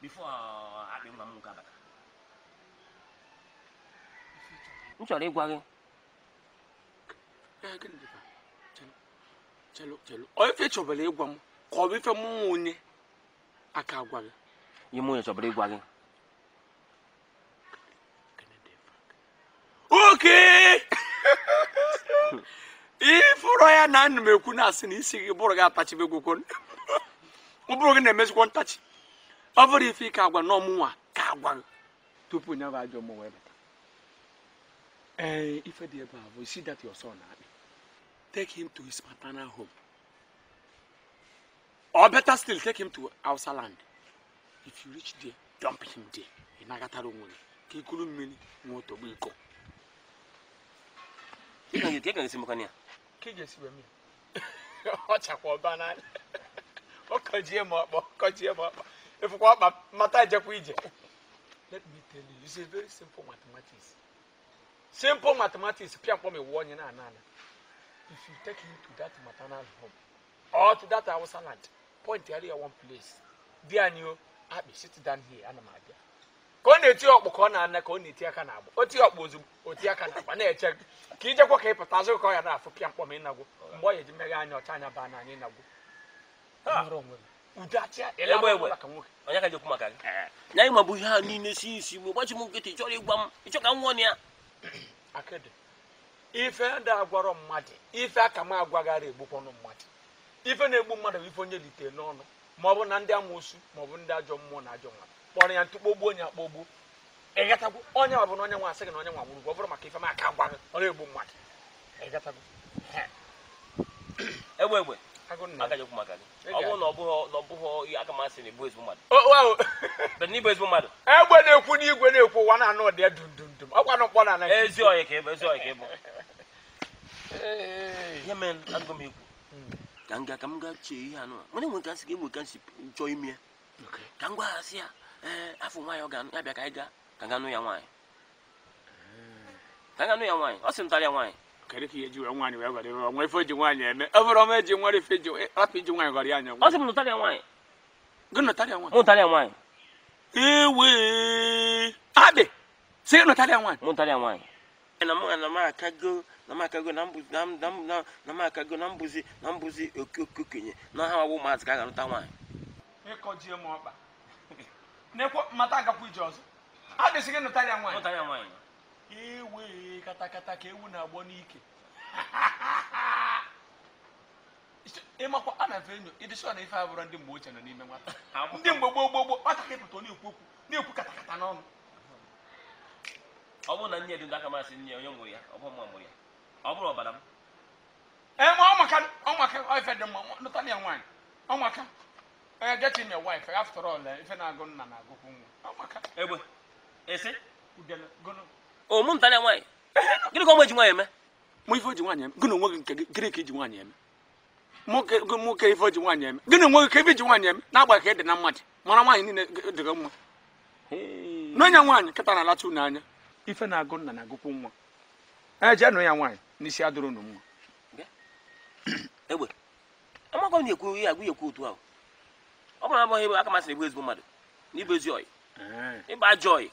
bifo akpị m nwoke abata m chọrọ ịgwa gị ife chọbara ịgwa m ka ọ bụ ife mụ onye aka agwa gị na ekwu na asị na isi gị bụrụ gị ọ bụrụ gị na-emezikwa ntachi ọ bụrụ ife ike agwa nwa ka agwa tupu nye bụ ajọ mmụ wee bata ee ife dị ebe a bụ isi that your na-akpị tek him to his paternal home or better still take him to Hausa land if you reach there dump him there ị nagatara onwe gị ka ikuru mmiri nwee otogbo iko ọ chakwa ọba n'anya ọkọjie m ọkpọ ọkọjie m ọkpọ efukwa ọkpa mata ejekwa ije let me tell you it's a very simple mathematics simple mathematics pịa mkpọm ewu onye na-ana ana if you take him to that maternal home or to that hausa land point ya one place di anyị o akpị sit down here ana m abịa ka ọ na-eti ọkpụ ka ọ na-ana ka ọ na-eti aka na-agba o ti ọkpụ ozugbo o ti aka na-agba na-eche ka ijekwa ka ị pụta azụ ka ọ ya na-afụ pịa mkpọm ịnagwo mgbe ọ ya eji mmeghe anya ọcha anya baa na n'anya ịnagwo onye ka jekwu maka gị na anyị mabụ ihe a niile si isi mgbe gbachi m nkịtị ịchọrọ ịgwa m ịchọ ka m nwụọ na ya ife ndị agwarọ mmadụ ife aka m mmadụ ife na-egbu mmadụ bụ ife onye litere n'ọnụ ma ọ bụ na ndị amụosu ma ndị ajọ mmụọ na ajọ mmadụ kpọrọ ya ntụ kpogbuo onye akpogbuo ịgatagwo onye na onye nwa asị gị na onye nwa ọ bụrụ maka ife maka ọ na-egbu mmadụ aga nyekwu maka gị ọ bụrụ na ọ bụghị na ọ bụghị ihe aka masị na ebu ezigbo mmadụ bụrụ na ibu ezigbo mmadụ egbe na-ekwu n'igwe na-ekwu ụwa na anụ dị ya ọkwa nọkpọ na anaghị ezi ọyị ka ịbụ ezi ọyị ka ịbụ ihe mere agụ m ekwu hmm. ka m gaa ka m gaa chee ihe anụ nwere nwe ka nsị ka egbe ka nsị chọọ ime ka m gwa ha sị ya afọ nwaanyị ọ ga-abịa ka anyị gaa ka ga nụ ya nwaanyị ka ga nụ ya nwaanyị ọ sị m ya nwaanyị kariki eh, ya jiwa nwani wa gari wa mwai foji nwani eme evro me ji nwari feji rapi ji nwani gari anya o se mu tari nwani gno tari nwani mu tari nwani ewe abe se gno tari nwani mu tari nwani na mu na ma kago na ma kago na mbuzi na na na ma kago na mbuzi na mbuzi okokenye na ha wo ma zaka ga nta nwani iko ji mu ọkpa nekwo mata agakwu ije ọzọ adịsị gị nụtara ya nwaanyị ewe katakata ka ewu na-agbọ n'ike ịmakwa a na venyu ịdịsọ na ife abụrụ ndị mgbe ochie nọ n'ime nwata ndị mgbe gboo gboo gboo nwata ka ịpụta na-ekwu okwu na-ekwu katakata n'ọnụ ọ bụrụ na nne edu aka masị nne onye mụrụ ya ọ bụ mụrụ ya ọ bụrụ ọbara m ee ma ọmaka ọmaka ife dị mma lụta na ya nwaanyị ọmaka onye get him your wife after all ife na-agụ nna na-agụkwu nwa ọmaka egbe ese udele ụmụntanya nwaanyị gịnị ka ọmụ eji nwaanyị eme mụ ife ji nwaanyị eme gị na onwe gị nke gịnị ka iji nwaanyị eme ife ji nwaanyị eme gịnị onwe gị ka ife ji nwaanyị eme na-agba ka ị e dị na mmadụ mara nwaanyị niile dịghị mma n'onye nwaanyị kịta na-alacha unu anya ife na-agụ nna na-agụkwu nwa e, nụ nwaanyị n'isi unu na-ekwu ihe agụ ekwu otu ahụ ọ bụrụ na abụghị bụ ezigbo mmadụ na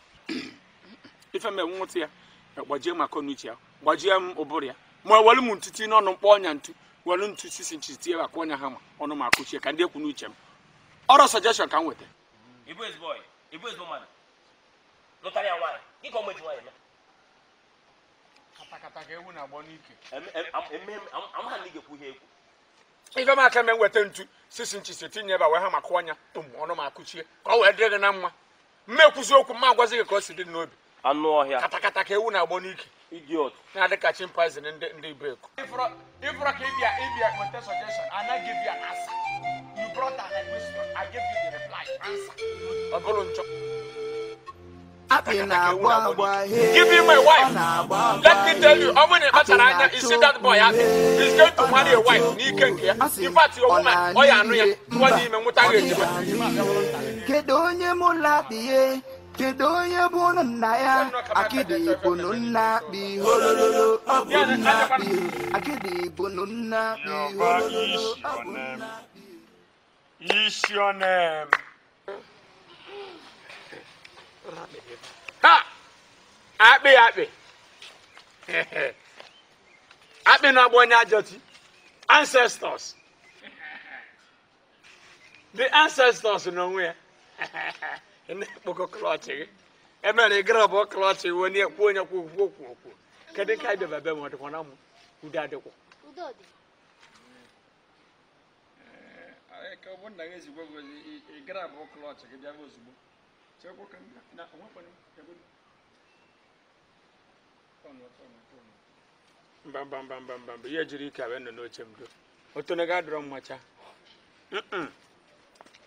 ife mme nwụta ya e, gbajie maka ọnụ uche ya gbajie m ụbụrụ ya ma welu m ntutu n'ọnụ mkpọ ọnya ntu welu ntu sisi nchi tie akwa ọnya ha ma ọnụ ma akụchie ka ndị ekwu n'uche m ọrụ sọjeshọn ka m weta ife m aka me nweta ntu sisi nchi si tinye ebe wee ha maka ọnya tụm ọnụ ma akụchie ka ọ wee dịrị gị na mma mma ekwuzi okwu mma agwazi gị ka o si dị n'obi anụ ọhịa katakata ka ewu na-agbọ n'ike idiot na-adị ka chimpanzee ndị ndị brek ịfụrọ ka ịbịa ịbịa weta suggestion na give you you brought an I give you the reply answer ọ bụrụ Give me my wife. Let me tell you, how many matter anya you see that boy He's going to marry a wife. nke ya. In fact, ọ ya anụ ya. dị ime onye mụ kedu onye bụ ụnụ nna ya akịdị ibụnụ nna akpị holololo ọ ha akpị akpị akpị na-agba onye ajọti ancestors the ancestors n'onwe ya ndị kpọkọ klọchị gị emere ị gara bụ klọchị wee nye kwuo onye kwuo kwuo kwuo kwuo kedu eh, ka ịbịaba ebe ma ọdịkwa na mụ ka ọ bụ nna gị ezigbo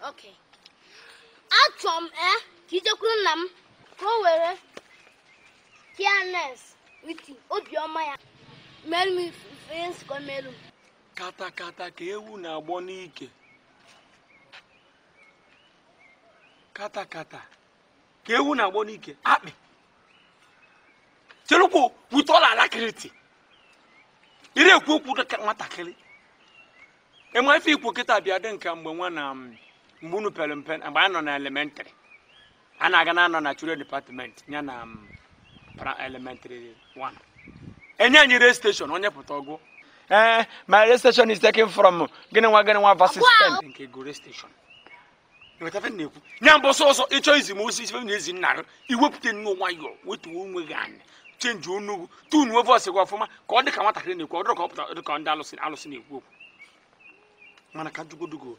achọ m e ka ijekwuru nna m ka o were kines wit obiọma ya mere meru m katakata ka ewu na-agbọ n'ike katakata ka ewu na-agbọ n'ike akpị cherukwu wutọla alakiriti ire ekwu okwu nwatakịrị ịma ikwu kịta bịa dị nka mgbe nwa na amị mgbe pere mpe mgbe anyị nọ na elementrị a na-aga na anọ na children department ya na mm, elementary 1 enye anyị rail station onye pụta ọgụ ee ma rail station is taking from gịnị nwa gịnị nwa versus ten nke go station na-ekwu nya mbụ sọsọ ịchọ izi m osi ife na ezi n'a iwepụta nnu nwayọ wetuo onwe gị anya chenji onugwu gị ọfụma ka ọ dị ka nwatakịrị na-ekwu ndị alụsị na-ekwu okwu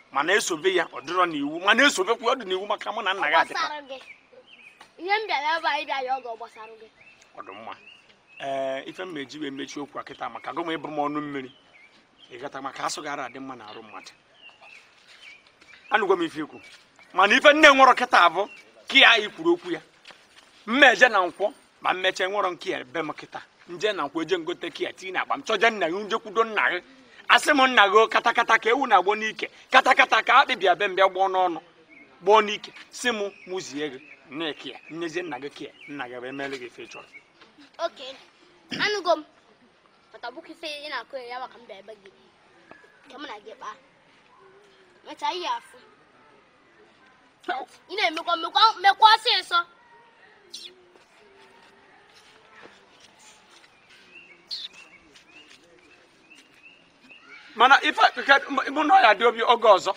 mana esobe ya ọ dịrọ n'iwu mana esobekwa ọ n'iwu maka mụ na nna gị adịka ọ ee ife m eji wee mechie okwu a kịta maka gụm ịbụ m ọnụ mmiri ịgata maka asụ gara adị mma na arụ mmadụ anụgwa m ife ikwu mana ife nne nwụrọ kịta abụ ka ya anyị kwuru okwu ya mme je na nkwọ ma mmeche nwụrọ nke ya be m kịta nje na nkwọ eje ngote ka ya tinye na akpa m chọje nna gị nje kwudo nna gị asị m nna gị katakata ka ewu na-agbọ n'ike katakata ka akpị bịa mgbe mbịa gbọọ n'ọnụ gbọọ n'ike si m mụzie gị nneke ya nnezie nna gị ka ya nna gị bụ emere gị ife chọrọ mana mụ na ọya dị obi oge ọzọ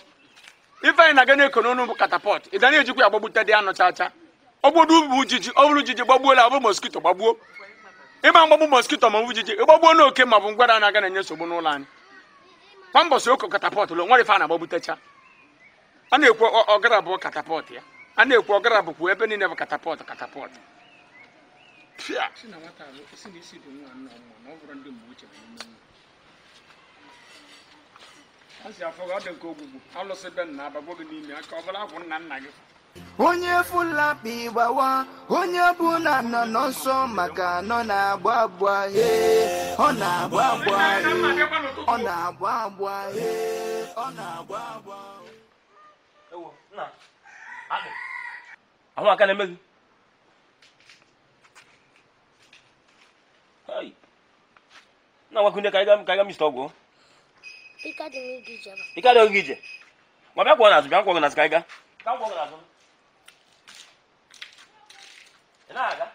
ife anyị na-aga na-eko n'ọnụ bụ katapọt ị ga ejikwa ya gbagbute dị anụ chacha ọ bụrụ bụ ujiji ọ bụrụ ujiji gbagbuola ọ bụ moskito gbagbuo ịma mgbagbu moskito ma ọ bụ ujiji ịgbagbuo n'oke ma ọ bụ ngwara na-aga na-enye nsogbu n'ụlọ anyị kwa mbọsị oko katapọt lụ nwere ife a na-agbagbutecha a na-ekwu ọgara bụ katapọt ya a na-ekwu ọgara bụkwa ebe niile bụ katapọt katapọt pịa asi afọ onye fulakpi gbawa onye bụla nọ n'ọsọ maka nọ na-agba agba he ọ na-agba agba he ọ na-agba agba he ọ na-agba agba ahụ aka na-eme gị na-agwakwunye ka anyị ga mista ọgwụ Ikadi mi gije ba. Ikadi o gije. Ma bia kwa na zu, bia kwa na zu kaiga. Ka kwa na zu. Ina aga.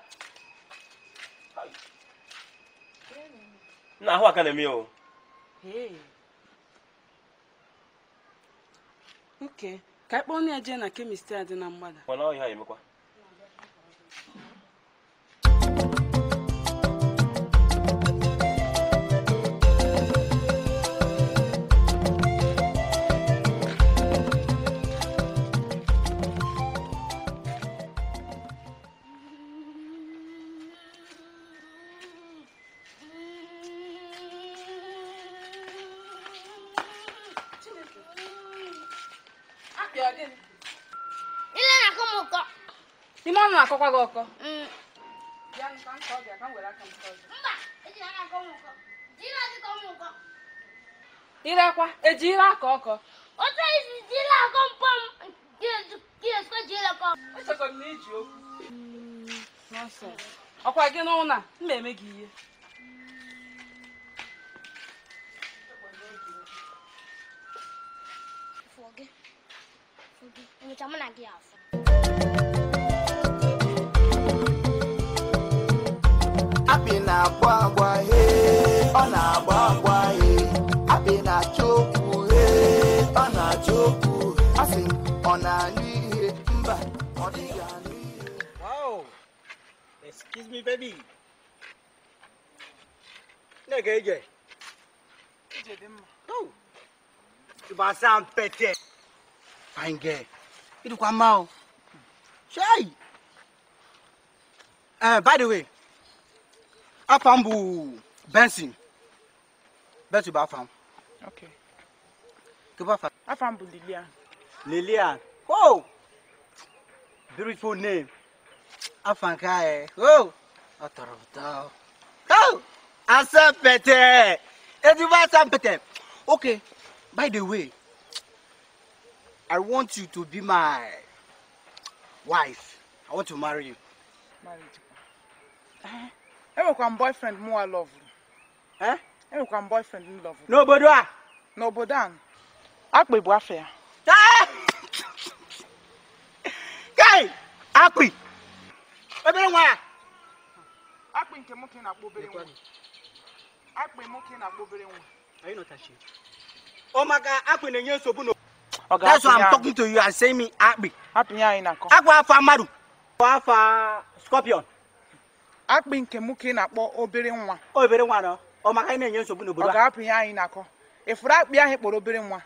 Na ahụ aka na-eme o. Nke, ka anyị onye je na kemist a dị na mgbada. Ọ na ọhịa emekwa. ọkọ bịa nka nka ọ bịa ka m were aka nke ọzọ irekwa ejire aka ọkọ otu esi jiri akọ mpọm echekọrọ na iji okwu ọkwa gị n'ụlọ a m na-eme gị ihe Enyocha mụ na gị apị na-agba agwa he ọ na-agba agwa he apị na-achọ okwu ọ na-achọ asị ọ na-anụ ihe mba ọ dịghị anụ ihe wow excuse me baby na-ege ije ije dị mma tubasa mpete fine girl idukwa mma o uh, by the way afam bu benson benson ba afam. okay. ke ba afam. afam bu lilian. lilian oh beautiful name afam ka ye oh ọtọrọtọ oh asan pẹtẹ eduba asan okay by the way i want you to be my wife i want to marry you. marriage. Uh -huh. enwekwa m boyfriend mụwa lovuru enwekwa eh? m boyfriend m lovuru n'obodo a n'obodo a akpị bụ afọ ya eh! kai akpị obere nwa ya akpị nke nwoke na-akpọ obere nwa akpị nwoke na-akpọ obere nwa ọ oh maka akpị na-enye nsogbu na That's why I'm talking to you and saying me happy. Happy, yeah, in a Aqua Famaru. Aqua akpị nke m na-akpọ obere nwa obere nwa nọ ọ maka anyị na-enye nsogbu ọ ga-apụ ihe anyị na-akọ ịfụrụ akpị ahụ kpọrọ obere nwa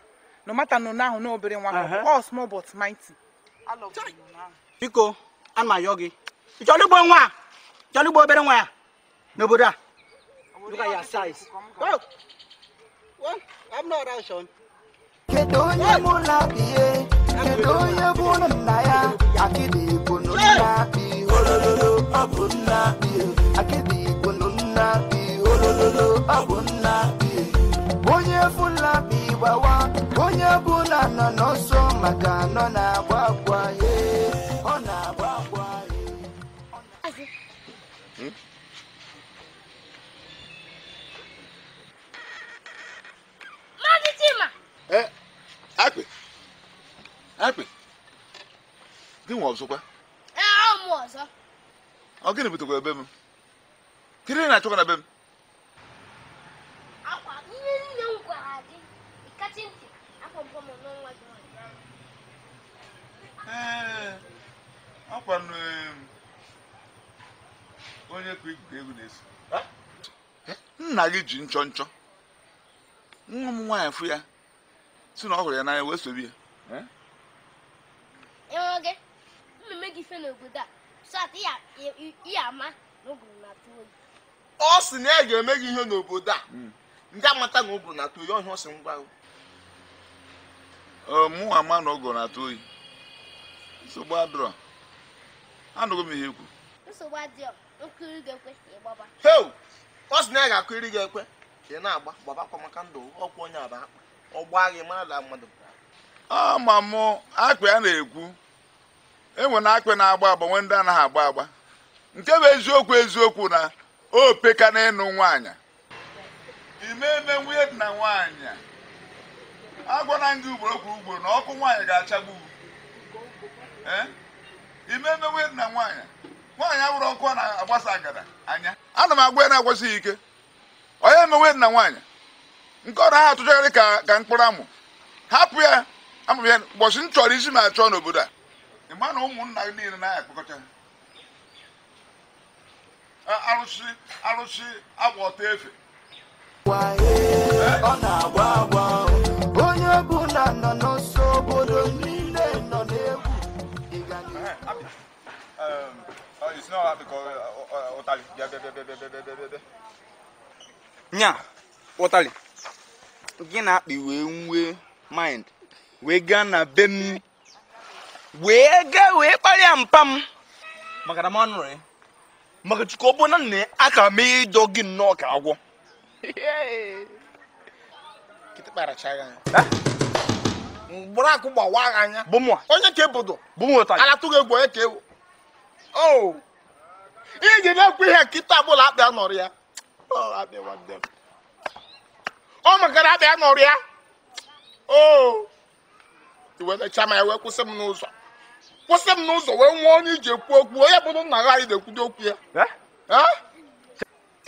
no mata na n'ahụ na obere nwa small but mighty biko a m ayọ gị nwa obere nwa ya n'obodo a onye onye bụ nna ya? olololo ọbụ nna akịdị igbolu nna olololo ọbụ nna onye bụla bi gbawa onye bụla nọ n'ọsọ maka nọ na-agba agwa ya ọ na-agba agwa ya Eh, akpị akpị gị nwa ọzọkwa ahụ m ọzọ ọ gịnị butekwa ebe m kedu na-achọkwa na be m akwa ihe m gwara gị ntị ee onye kwa egwu na-eso eh, nna gị ji nchọ nchọ nwa m nwaanyị fụ ya si na ọ hụrụ ya n'anya wee sobi ya eh? na-eme gị ife n'obodo a ama ọ sị na ya e ga-eme gị ihe n'obodo a hmm. ndị amata na ụgụrụ na-atụ oyi ọhịa ọ sị ngwa mụ ama na ụgụrụ na-atụ oyi nsogbu adịrọ anụghị m ihe ekwu nsogbu adịrọ nkiri ga-ekwe ịgbaba heo ọ sị na ya e ga akụ iri gị ekwe ka ị na-agba gbabakwa maka ndụ ọkwụ onye aba akpa ọ gbaa gị mara da mmadụ ama mụ akpa ya na-ekwu enwe na akpị na-agba agba nwe ndị anaghị agba agba nke bụ eziokwu eziokwu na opeka peka na ịnụ nwaanyị imeme nwunye dị na nwaanyị agwala gị ugboro kwuru ugboro na ọkụ nwaanyị ga-achagbu ime eme nwunye dị na nwaanyị nwaanyị abụrụ ọkụ a na-agbasa agada anya ana m agwa ya na-agwasịghị ike onye eme nwunye dị na nwaanyị nke ọ ọrụ ha atụchagharị ka mkpụrụ amụ hapụ ya amụbịa ụbọchị m chọrọ isi m achọ n'obodo a ịma na ụmụnna gị niile na akpọkọta arụsị arụsị agwa ọta efe onye ọbụla nọ n'ọsọ obodo niile nọ n'egwu um, uh, nya ụtalị gị na-akpị wee nwee mind wee gaa na be m wee gaa wee kparịa mpam m maka na m maka chukwu ọ bụ na nna a ka mee ịdọ gị nnọọ ka agwọ mgbụrụ akụ gbawa agha anya onye ka ebodo alatụghị egwu onye ka ewu iji na-ekwu ihe nkịta bụla akpị anọrọ ya oh, ọ makara akpị anọrọ ya o oh. iwetacha ma ya wee kwụsị m n'ụzọ kwụsị m n'ụzọ wee nwee onye iji ekwu okwu onye bụrụ nna gị na-ekwudo okwu ya eh?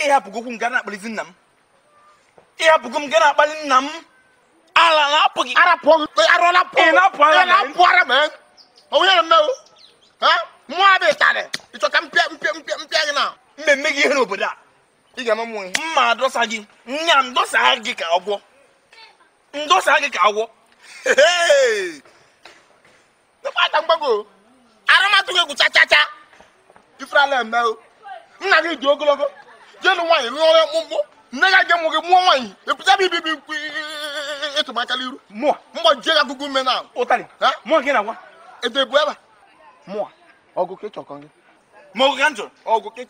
ịhapụgo m ga na-akpalizi nna m ịhapụgo m ga na-akpali nna m na ara onye na mmewo ka mpe gị na mmemme gị ihe n'obodo a ị ga ama mma gị nya gị ka agwọ gị kpata mgbago arụmatụ gị egwucha chacha ifrala eme nna gị dị ogologo jenu nwaanyị lụọrọ mkpụmkpụ nne ya ga mụ gị mụọ nwaanyị epụta iru ya agụgụ na ede bụ ebe mụọ ọgụ ka ịchọkọ gị ọgụ ka m ọgụ ka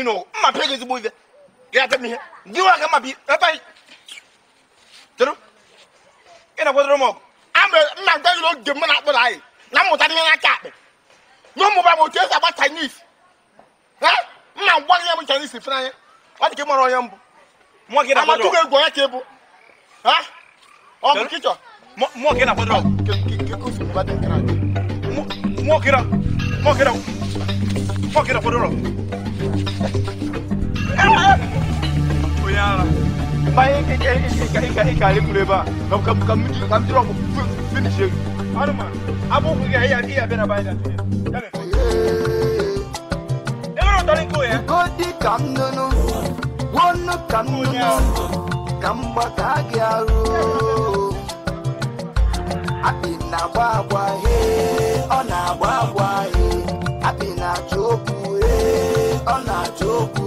ịnụ mma pịa gị ezigbo ihe ihe nwa mma bi ebe ị na-agwadoro m mere nna m gaghịla oge na akpụrụ anyị na mmụta ihe n'aka akpị na ụmụba m otu esi agba Chinese nna m gwaghị ya m anya ọ dị ka onye mbụ egwu onye ka ịbụ ọ bụ kịchọ bayan ka ka ka ka kalkule ba kam kam kam mutu kam jira ku finish har ma abu ku ga iya iya na gba agwa ọ na agba agwa he ọ na chokwu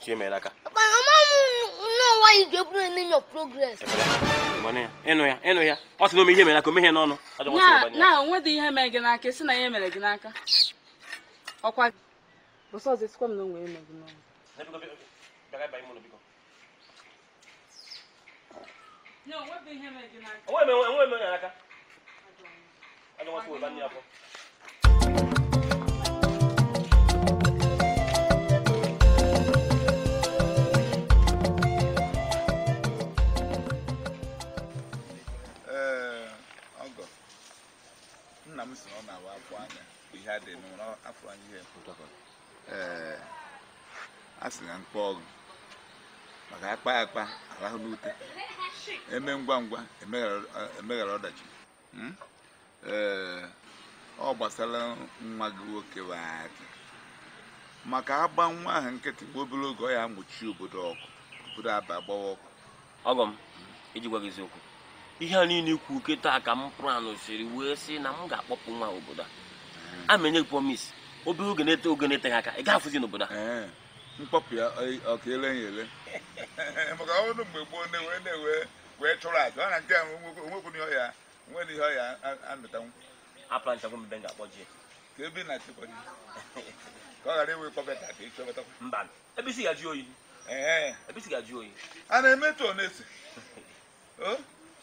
chiemela aka ịnụ ya ịnụ ya ọ sị na ome ihe mere aka omehie na onwedị ihe mere gị n'aka si na ya aka m na onwe eme gị n'ọnụ onwe eme onye nna m si na ọ na-awa afọ anya ihe a dị n'ụra afọ anya ihe ee a sị na mkpa ọgụ maka akpa akpa arahụ n'ute eme ngwa ngwa emeghara ọdachi hmm? ọ gbasara nwa gị nwoke aki maka agba nwa ahụ nkịtị gbuo obere oge ọ ya amụchi obodo ọkụ obodo aba agbawa ọkụ ọgọ m iji gwa gị eziokwu ihe a niile ikwu oke taa ka m pụrụ siri wee sị na m ga-akpọpụ nwa obodo a hmm. amenye gị promis obere oge na-ete oge na-eteghị aka ị ga-afụzi n'obodo a hmm. mkpọpụ ya ọka ele ya ele maka ọnụ mgbe gboo na-ewe na-ewe wee chụrụ aja ọ na nke a onwekwu ihe ọya nwere ihe ọya amịtanwu apụlanchagwo mbe ga-akpọ ji ka ebe na achịkwa ji ka ọ ghara iwe kpọbata ka ịchọbata mba ebe isi ga-ajụ oyi ebe isi ga-ajụ oyi a na-emetụ ọ na-ese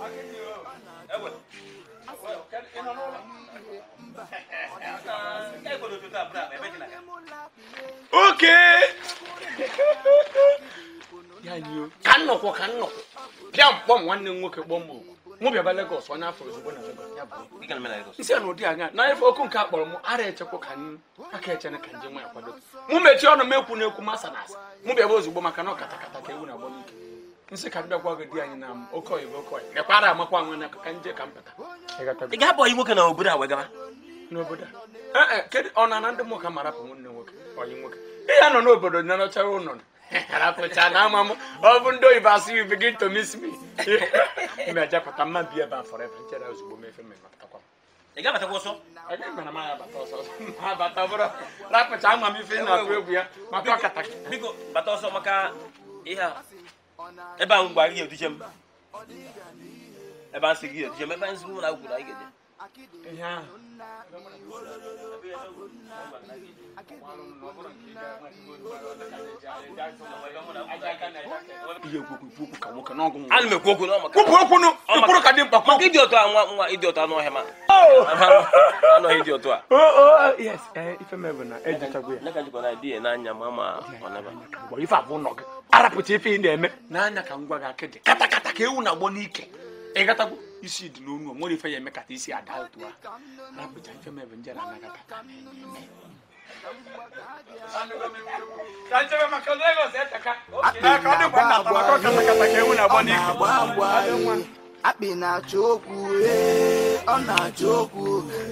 oke ka nnọkwọ ka nnọkwọ bịa mkpọm nwanne m nwoke kpọm okwu mụ bịaba Lagos onye afọ ozugbo na Lagos na ụdị anya na ife okwu nke a kpọrọ m ara echekwa ka aka echene ka nje nwa ya kwado mụ mechie ọnụ m ekwu na ekwu masa na asa mụ ozugbo maka na ka ewu na-agbọ nse ka ndị ọgwa gị di anyị na oke oyibo oke oyibo lekwara amakwa na ka nje ka mpụta ị ga-abụ ọyị nwoke na obodo a wee gaba n'obodo a eh, eh, kedu ọ na ndị nwoke ma rapụ Iya nwoke ọyị nwoke ị ya nọ n'obodo na nọchara ụlọ rapụcha na ama m ọ bụ ndị oyibo you begin to miss me ime ajapụta mma bi ebe a forever nchere ozugbo mefe mmemme atakwa ị ga-abatakwa ọsọ abata bụrụ rapụcha ama m ife na-agụ egwu ya maka ọkata biko bata so maka iya. a ebe ahụ mgbe anyị ga-eduche m ebe a sị gị eduche m ebe anyị sịgị ụlọ anyị ga ihe ahụ ana m ekwu okwu n'ọmụkwụrụ ka dị mkpa maka ịdị otu nwa nwa ịdị otu anụ ọhịa ma anọghị dị otu a ife mebụ na ejichagwo ya n'anya ma ma ife abụọ nọ gị arapụta ife ị na-eme n'anya ka ngwa gị akịdị katakata ka ewu na agbọ n'ike ịgatago isi dị n'onu nwere ife ya eme kata isi ada otu a arapụta ife mebe nje na anagata akpị na-achọ okwu ọ na-achọ okwu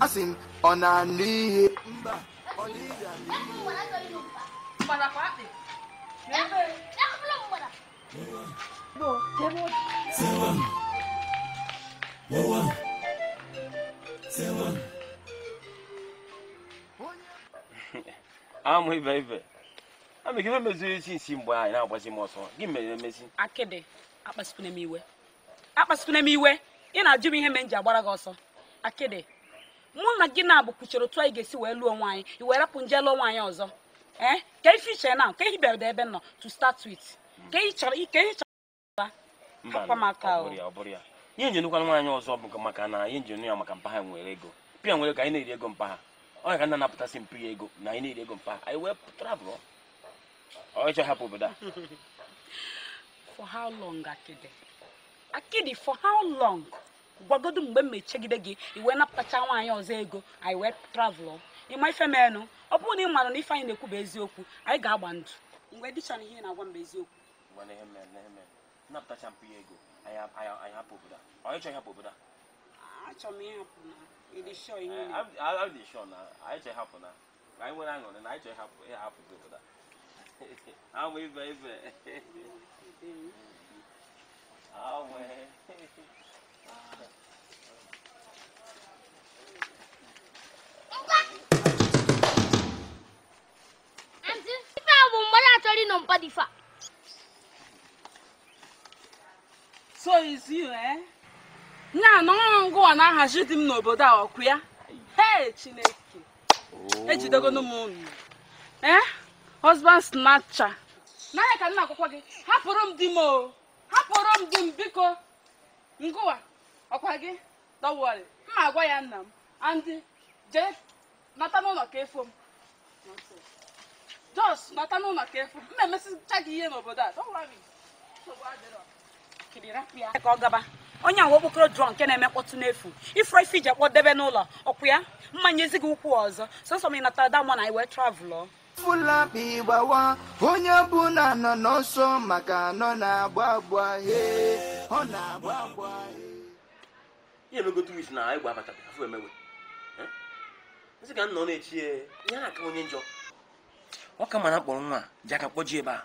asị m ọ na-anụ ihe mba ọ na-anụ ihe Во, я вот. Целом. Вова. Целом. Ah, my baby. I'm giving me the things in why now was him also. Give me a message. m iwe. Akpasipuna m iwe. Ị na-ajụ m ihe m ji agbara gị ọsọ. Akede, mụ na gị na-abụ kwuchiri otu anyị ga-esi wee lụọ nwaanyị, i wee rapụ nje lụọ nwaanyị ọzọ. Ee, eh, ka ife iche na, ka ehi bịara ebe nọ to start with. ka ị chọrọ ike ị chọrọ akwa maka ihe njenukwana nwaanyị ọzọ bụ maka na ihe njenu ya maka mpa nwere ego pịa nwere ka anyị na-eri ego mpa ha ọ ka nna napụtasị mpi ya ego na anyị na-eri ego mpa ha anyị wee travel ọ ịchọ hapụ obodo a for how long akidi akidi for how long gwagodo mgbe m mechegide gị iwee napụtacha nwaanyị ọzọ ego anyị wee travel ịma ife menụ ọ bụrụ na ị maara na ife anyị na-ekwu bụ eziokwu anyị ga-agba ndụ mgbe dịcha na ihe na-agwa mgbe eziokwu agba na ihe mere na ihe mere napụtacha mpụ ya ego anyị hapụ obodo a onye chọ ịhapụ obodo a achọ m ịhapụ na ịdị shọ ihe a dị shọ na anyị chọ ịhapụ na anyị nwere aṅụrị na anyị chọ ịhapụ ịhapụ gị obodo a ama ibe ibe awe Anti, ife bụ mgbe so is you eh nya na ọrụ ngụwa na-ahazi di m n'obodo a ọkụ ya hei chineke oh. ejidegonu m unu eh husband snatcher n'ahịa ka nna akwụkwọ gị hapụrụ m di m o hapụrụ m di m biko ngụwa ọkwa gị don't worry mma agwa ya nna m andị jee nata n'ụlọ ka efo m jos nata n'ụlọ ka efo m na emesicha gị ihe n'obodo a don't worry onye ahụ okpokoro drọ nke na-eme mkpọtụ n'efu ifre ife iji akpọdebe n'ụlọ ọkwụ ya mmanya ezighị ụkwụ ọzọ sọsọ m ị natara damọ na anyị wee onye na nọ n'ọsọ maka nọ na-agba agba he ọ na-agba agba ihe na ịgba afọ emewe na-echi onye njọ ọ ka mma na nwa ji aka kpọji ebe a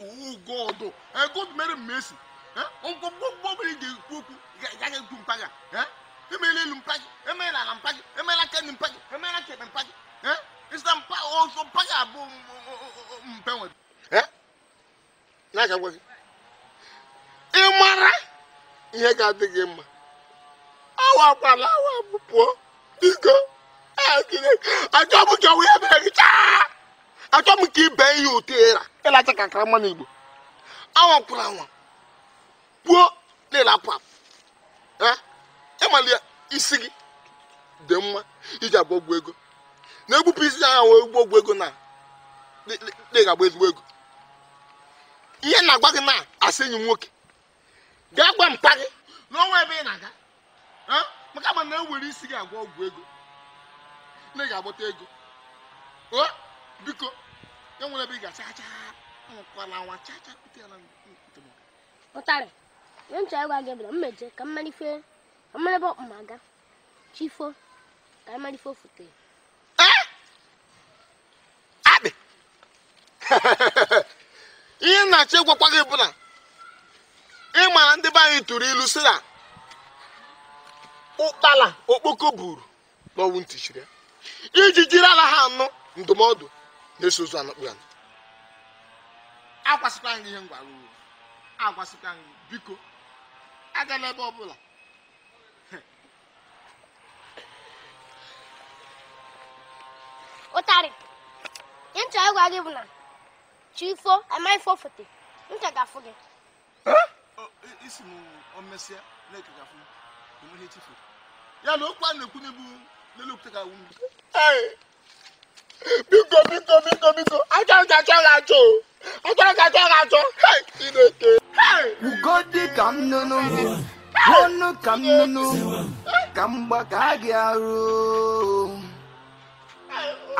owó gọọdọ ẹ gọọdọ mẹrin mẹsì ẹ ọgbọ gbọgbọ bẹrẹ jẹ kúkú yàgẹ tu mpaga ẹ emele lu mpaga emele ala mpaga emele aka ni mpaga emele aka ni mpaga ẹ ìsìlẹ mpa ọsọ mpaga abọ mpẹ wọn. ẹ n'a ka gbọsi ị mara ihe ga-adị gị mma awa akwala awa pụọ biko ẹ kiri ajọ bụ jọwụ ya mere gị chaa. achọ m ka ibe ihe ụtọ ịra ịlacha ka akara mmanụ igbo anwakwụrụ anwa puo na-ele apụ apụ ya isi gị dị mma iji abụ ọgwụ ego na-egbupụ isi ya ahụ egbu ọgwụ ego na ga ezigbo ego ihe na-agba gị na asị enyi nwoke gaa gwa mpa gị n'ọnwa ebe ị na-aga maka ma na-ewere isi gị agwa ọgwụ ego na ị ga-agbata ego biko e nwere ebe ị ga-acha chaa anwụkwala nwa chaa chaa kute ala ụtarị ihe ncha ịgwa gị bụ na mmeje ka mmalife ka mmara ebe ọkpụma aga chifo ka mmalife ofute akpị ihe nnachi gwakwa gị bụ na ndị be anyị tụrụ ilu si na ụkpala okpoko buru n'ọnwụ ntị iji jiri ala ha anụ ndụmọdụ na-eso ozu anakpụ ya agwasịkwa gị ihe m gwara uru agwasịkwa gị biko agala ebe ọbụla ụtarị ncha ịgwa gị bụ na chi ifo amaghị ifo fote ncha ga-afụ gị isi m omesịa na-eke ga-afụ enweghị echifu ya na okwu a na-ekwu n'ebu n'elu okwute ga-awụ mgbe biko biko biko biko achọrọ ka achọrọ achọ achọrọ ka achọrọ achọ chineke ugodi ka m nụnụ ọnụ ka m nụnụ ka m gbaka gị arụ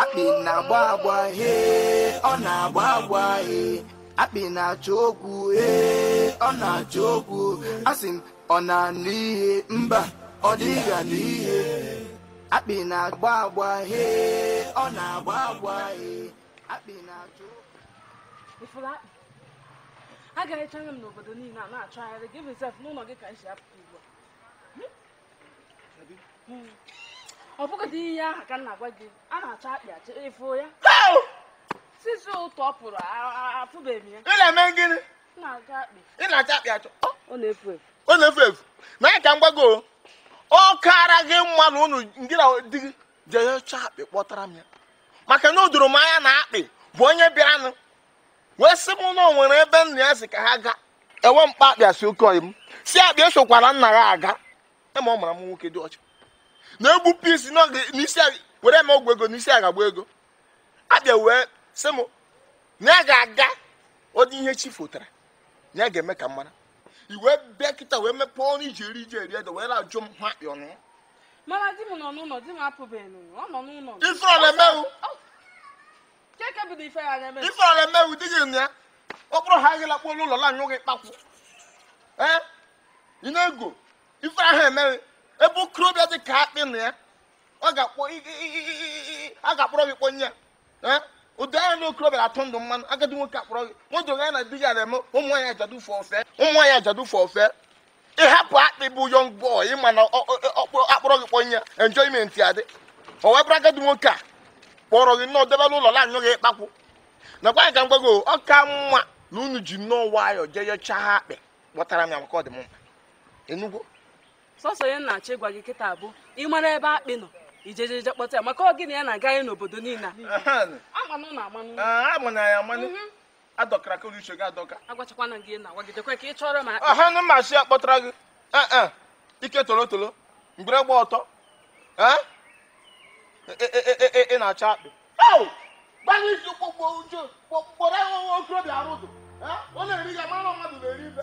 akpị na-agba agba he ọ na-agba agba he akpị na-achọ okwu he ọ na-achọ okwu asị m ọ na-anụ ihe mba ọ dịghị anụ ihe akpị na-agba agba hee ọ na-agba agba hee akpị na-achụ ịfụrụ akpị agaghị echanye m n'obodo niile a na-achọ ahịrị gị bizef n'ụlọ gị ka m si apụta ugbu a hmm. ọ bụgodị ihe aha ka m na-agwa gị a na-achọ akpị achọ ịfụ ya sisi ụtọ pụrụ afụbeghị ya ị na-eme gịnị ị na-achọ akpị achọ ọ na-efu efu ọ na-efu efu na ya ka ọ kara gị mma na unu ndị na di gị jeyecha akpị kpọtara m ya maka na o doro m anya na akpị bụ onye bịaranụ wee sị m na nwere ebe nna ya si ka ha gaa enwe mkpa akpịa si oke oyi m si akpịa esokwara nna ya aga ema ọ mara m nwoke dị ọcha na-egbu pisi n'isi were eme ọgwụ ego n'isi agagba ego akpịa wee sị m na ya ga-aga ọ dị ihe chi fotara na ya ga-eme ka m mara iwe bịa kịta wee mepee ọnụ iji eri iji eri ede wee na-ajụ m ha m nọ n'ụlọ di m ọ nọ n'ụlọ ọrụ emewu keke ife ya na gị ya okpụrụ ha agịla kpụrụ n'ụlọ la anyụ gị kpakwụ ee ị na-ego ife ahụ emeghị ebe okorobịa dị ka akpị na ya ọ ga gị kpọ ụdị anya na okorobịa atụ ndụ mmanụ agadi nwoke akpọrọ gị nwodoga ya na di gị ana eme ụmụ nwaanyị ajadu fọ ụmụ nwaanyị ajadu fọ ofe ịhapụ akpị bụ yọng bọị ịma na akpọrọ gị kpọnye enjoyment ya dị o wee bụrụ agadi nwoke a kpọrọ gị nnọọ debela ụlọ na-anyụ gị ịkpakwụ nakwa anyị ka m gwago ọ ka mma na unu ji nnọọ nwayọ jee yechaa ha akpị kpọtara m ya maka ọdịmma dị sọsọ ya na-achọ ịgwa gị kịta ị mara ebe akpị nọ ijejeje kpọta ya maka ọ gịnị ya na-aga anyị n'obodo niile amanụ na amanụ ah, amana ya amanụ mhm. adọkara ka uche gị adọka agwachakwana gị na wagidekwe ka ị chọrọ ma ọhanụ mmasị ya kpọtara gị eh, eh. ike tolotolo toro mgbere gba ọtọ eh? e, e, e, ị na-acha akpị gbalị isi kpọkpọ uche kpọrọ ya nwa okorobịa arụzụ ọ na-eri ya mara mmadụ na-eri ibe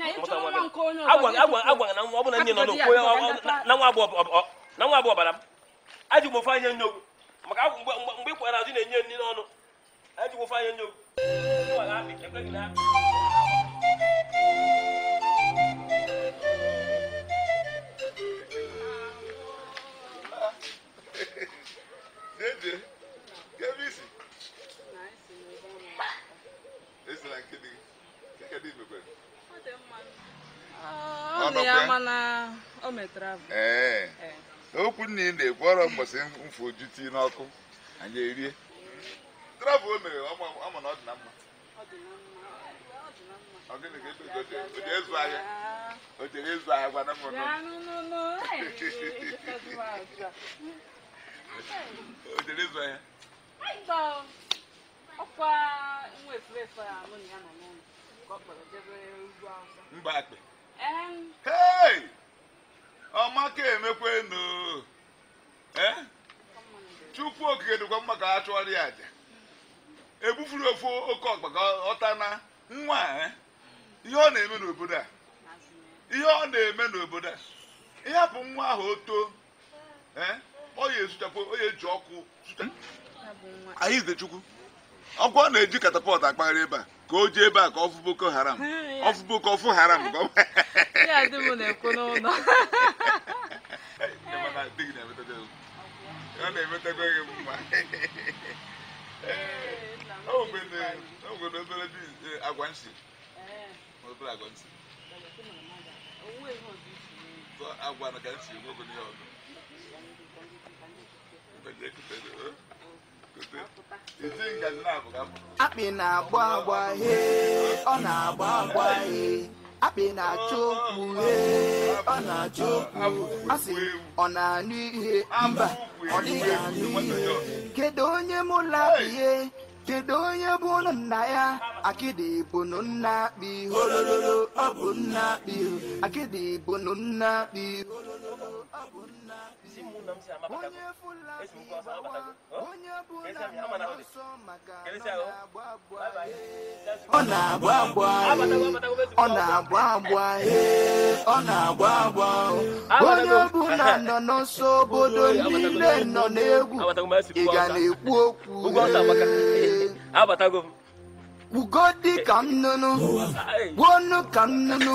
agwara na nwa ọ na nne nọ na nwa abụ ọbara m m ofe anya nye ogwu maka mgbe ị kwara azụ na-enye nri n'ọnụ ajụ m ofe anya nye ogwu Esse lá o okwu nna ị na-ekwu ọrụ mbọsị mfu oju tii n'ọkụ anyị erie travel o mere ama na ọ dị na mma ọ gịnị ka ebe o jere ịzụ ahịa o jere ịzụ ahịa gwana m o jere ịzụ ahịa mba akpị hey ọmaka emekwenu chukwu okike dịkwa mma ka ha chụọrọ ya aja egbufuru ofu oke ọkpa ka ọta na nwa ihe ọ na-eme n'obodo a ihe ọ na-eme n'obodo a ịhapụ nwa ahụ o too ọ ya ezuchapụ ọ ya eji ọkụ anyị Izechukwu ọkụ ọ na-eji katapọtụ akpagharị ebe a ka o jee ebe a ka ọ boko haram ọ fụ boko ọfụ haram ka ọ ya dị m na-ekwu n'ụlọ ọ na-emetakwa gị mma e, agwa nsị eh. agwa nsị agwa na ka nsị nwegoro ọdụ akpị na-agba agba he ọ na-agba agba he akpị na-achọ okwu he ọ na-achọ okwu asị ọ na-anụ ihe mba ọ dịghị anụ ihe kedu onye mụ ihe, kedu onye bụ nna ya akịdị bụnụ nna akpị holololo ọ bụ nna akpị akịdị nna akpị holololo ọ bụ nna onye fulabi bawa oh. onye bụ na ọsọ maka ọ na-agba agba ọ na-agba agba ọ na-agba agba onye bụ nọ n'ọsọ obodo niile nọ n'egwu ị ga na-ekwu okwu kwugo ka nnụnụ gbuonu ka nnụnụ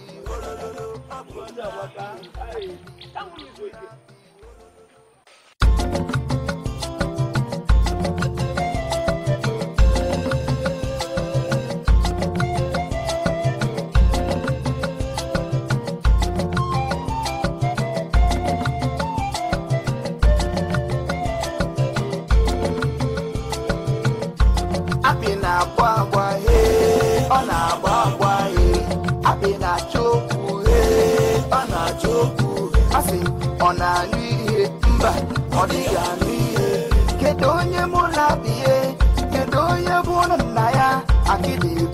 Akpị na-agba agba, ee, ọ ọdịghị kedu onye mụ na-abịa kedu onye bụ nna akịdị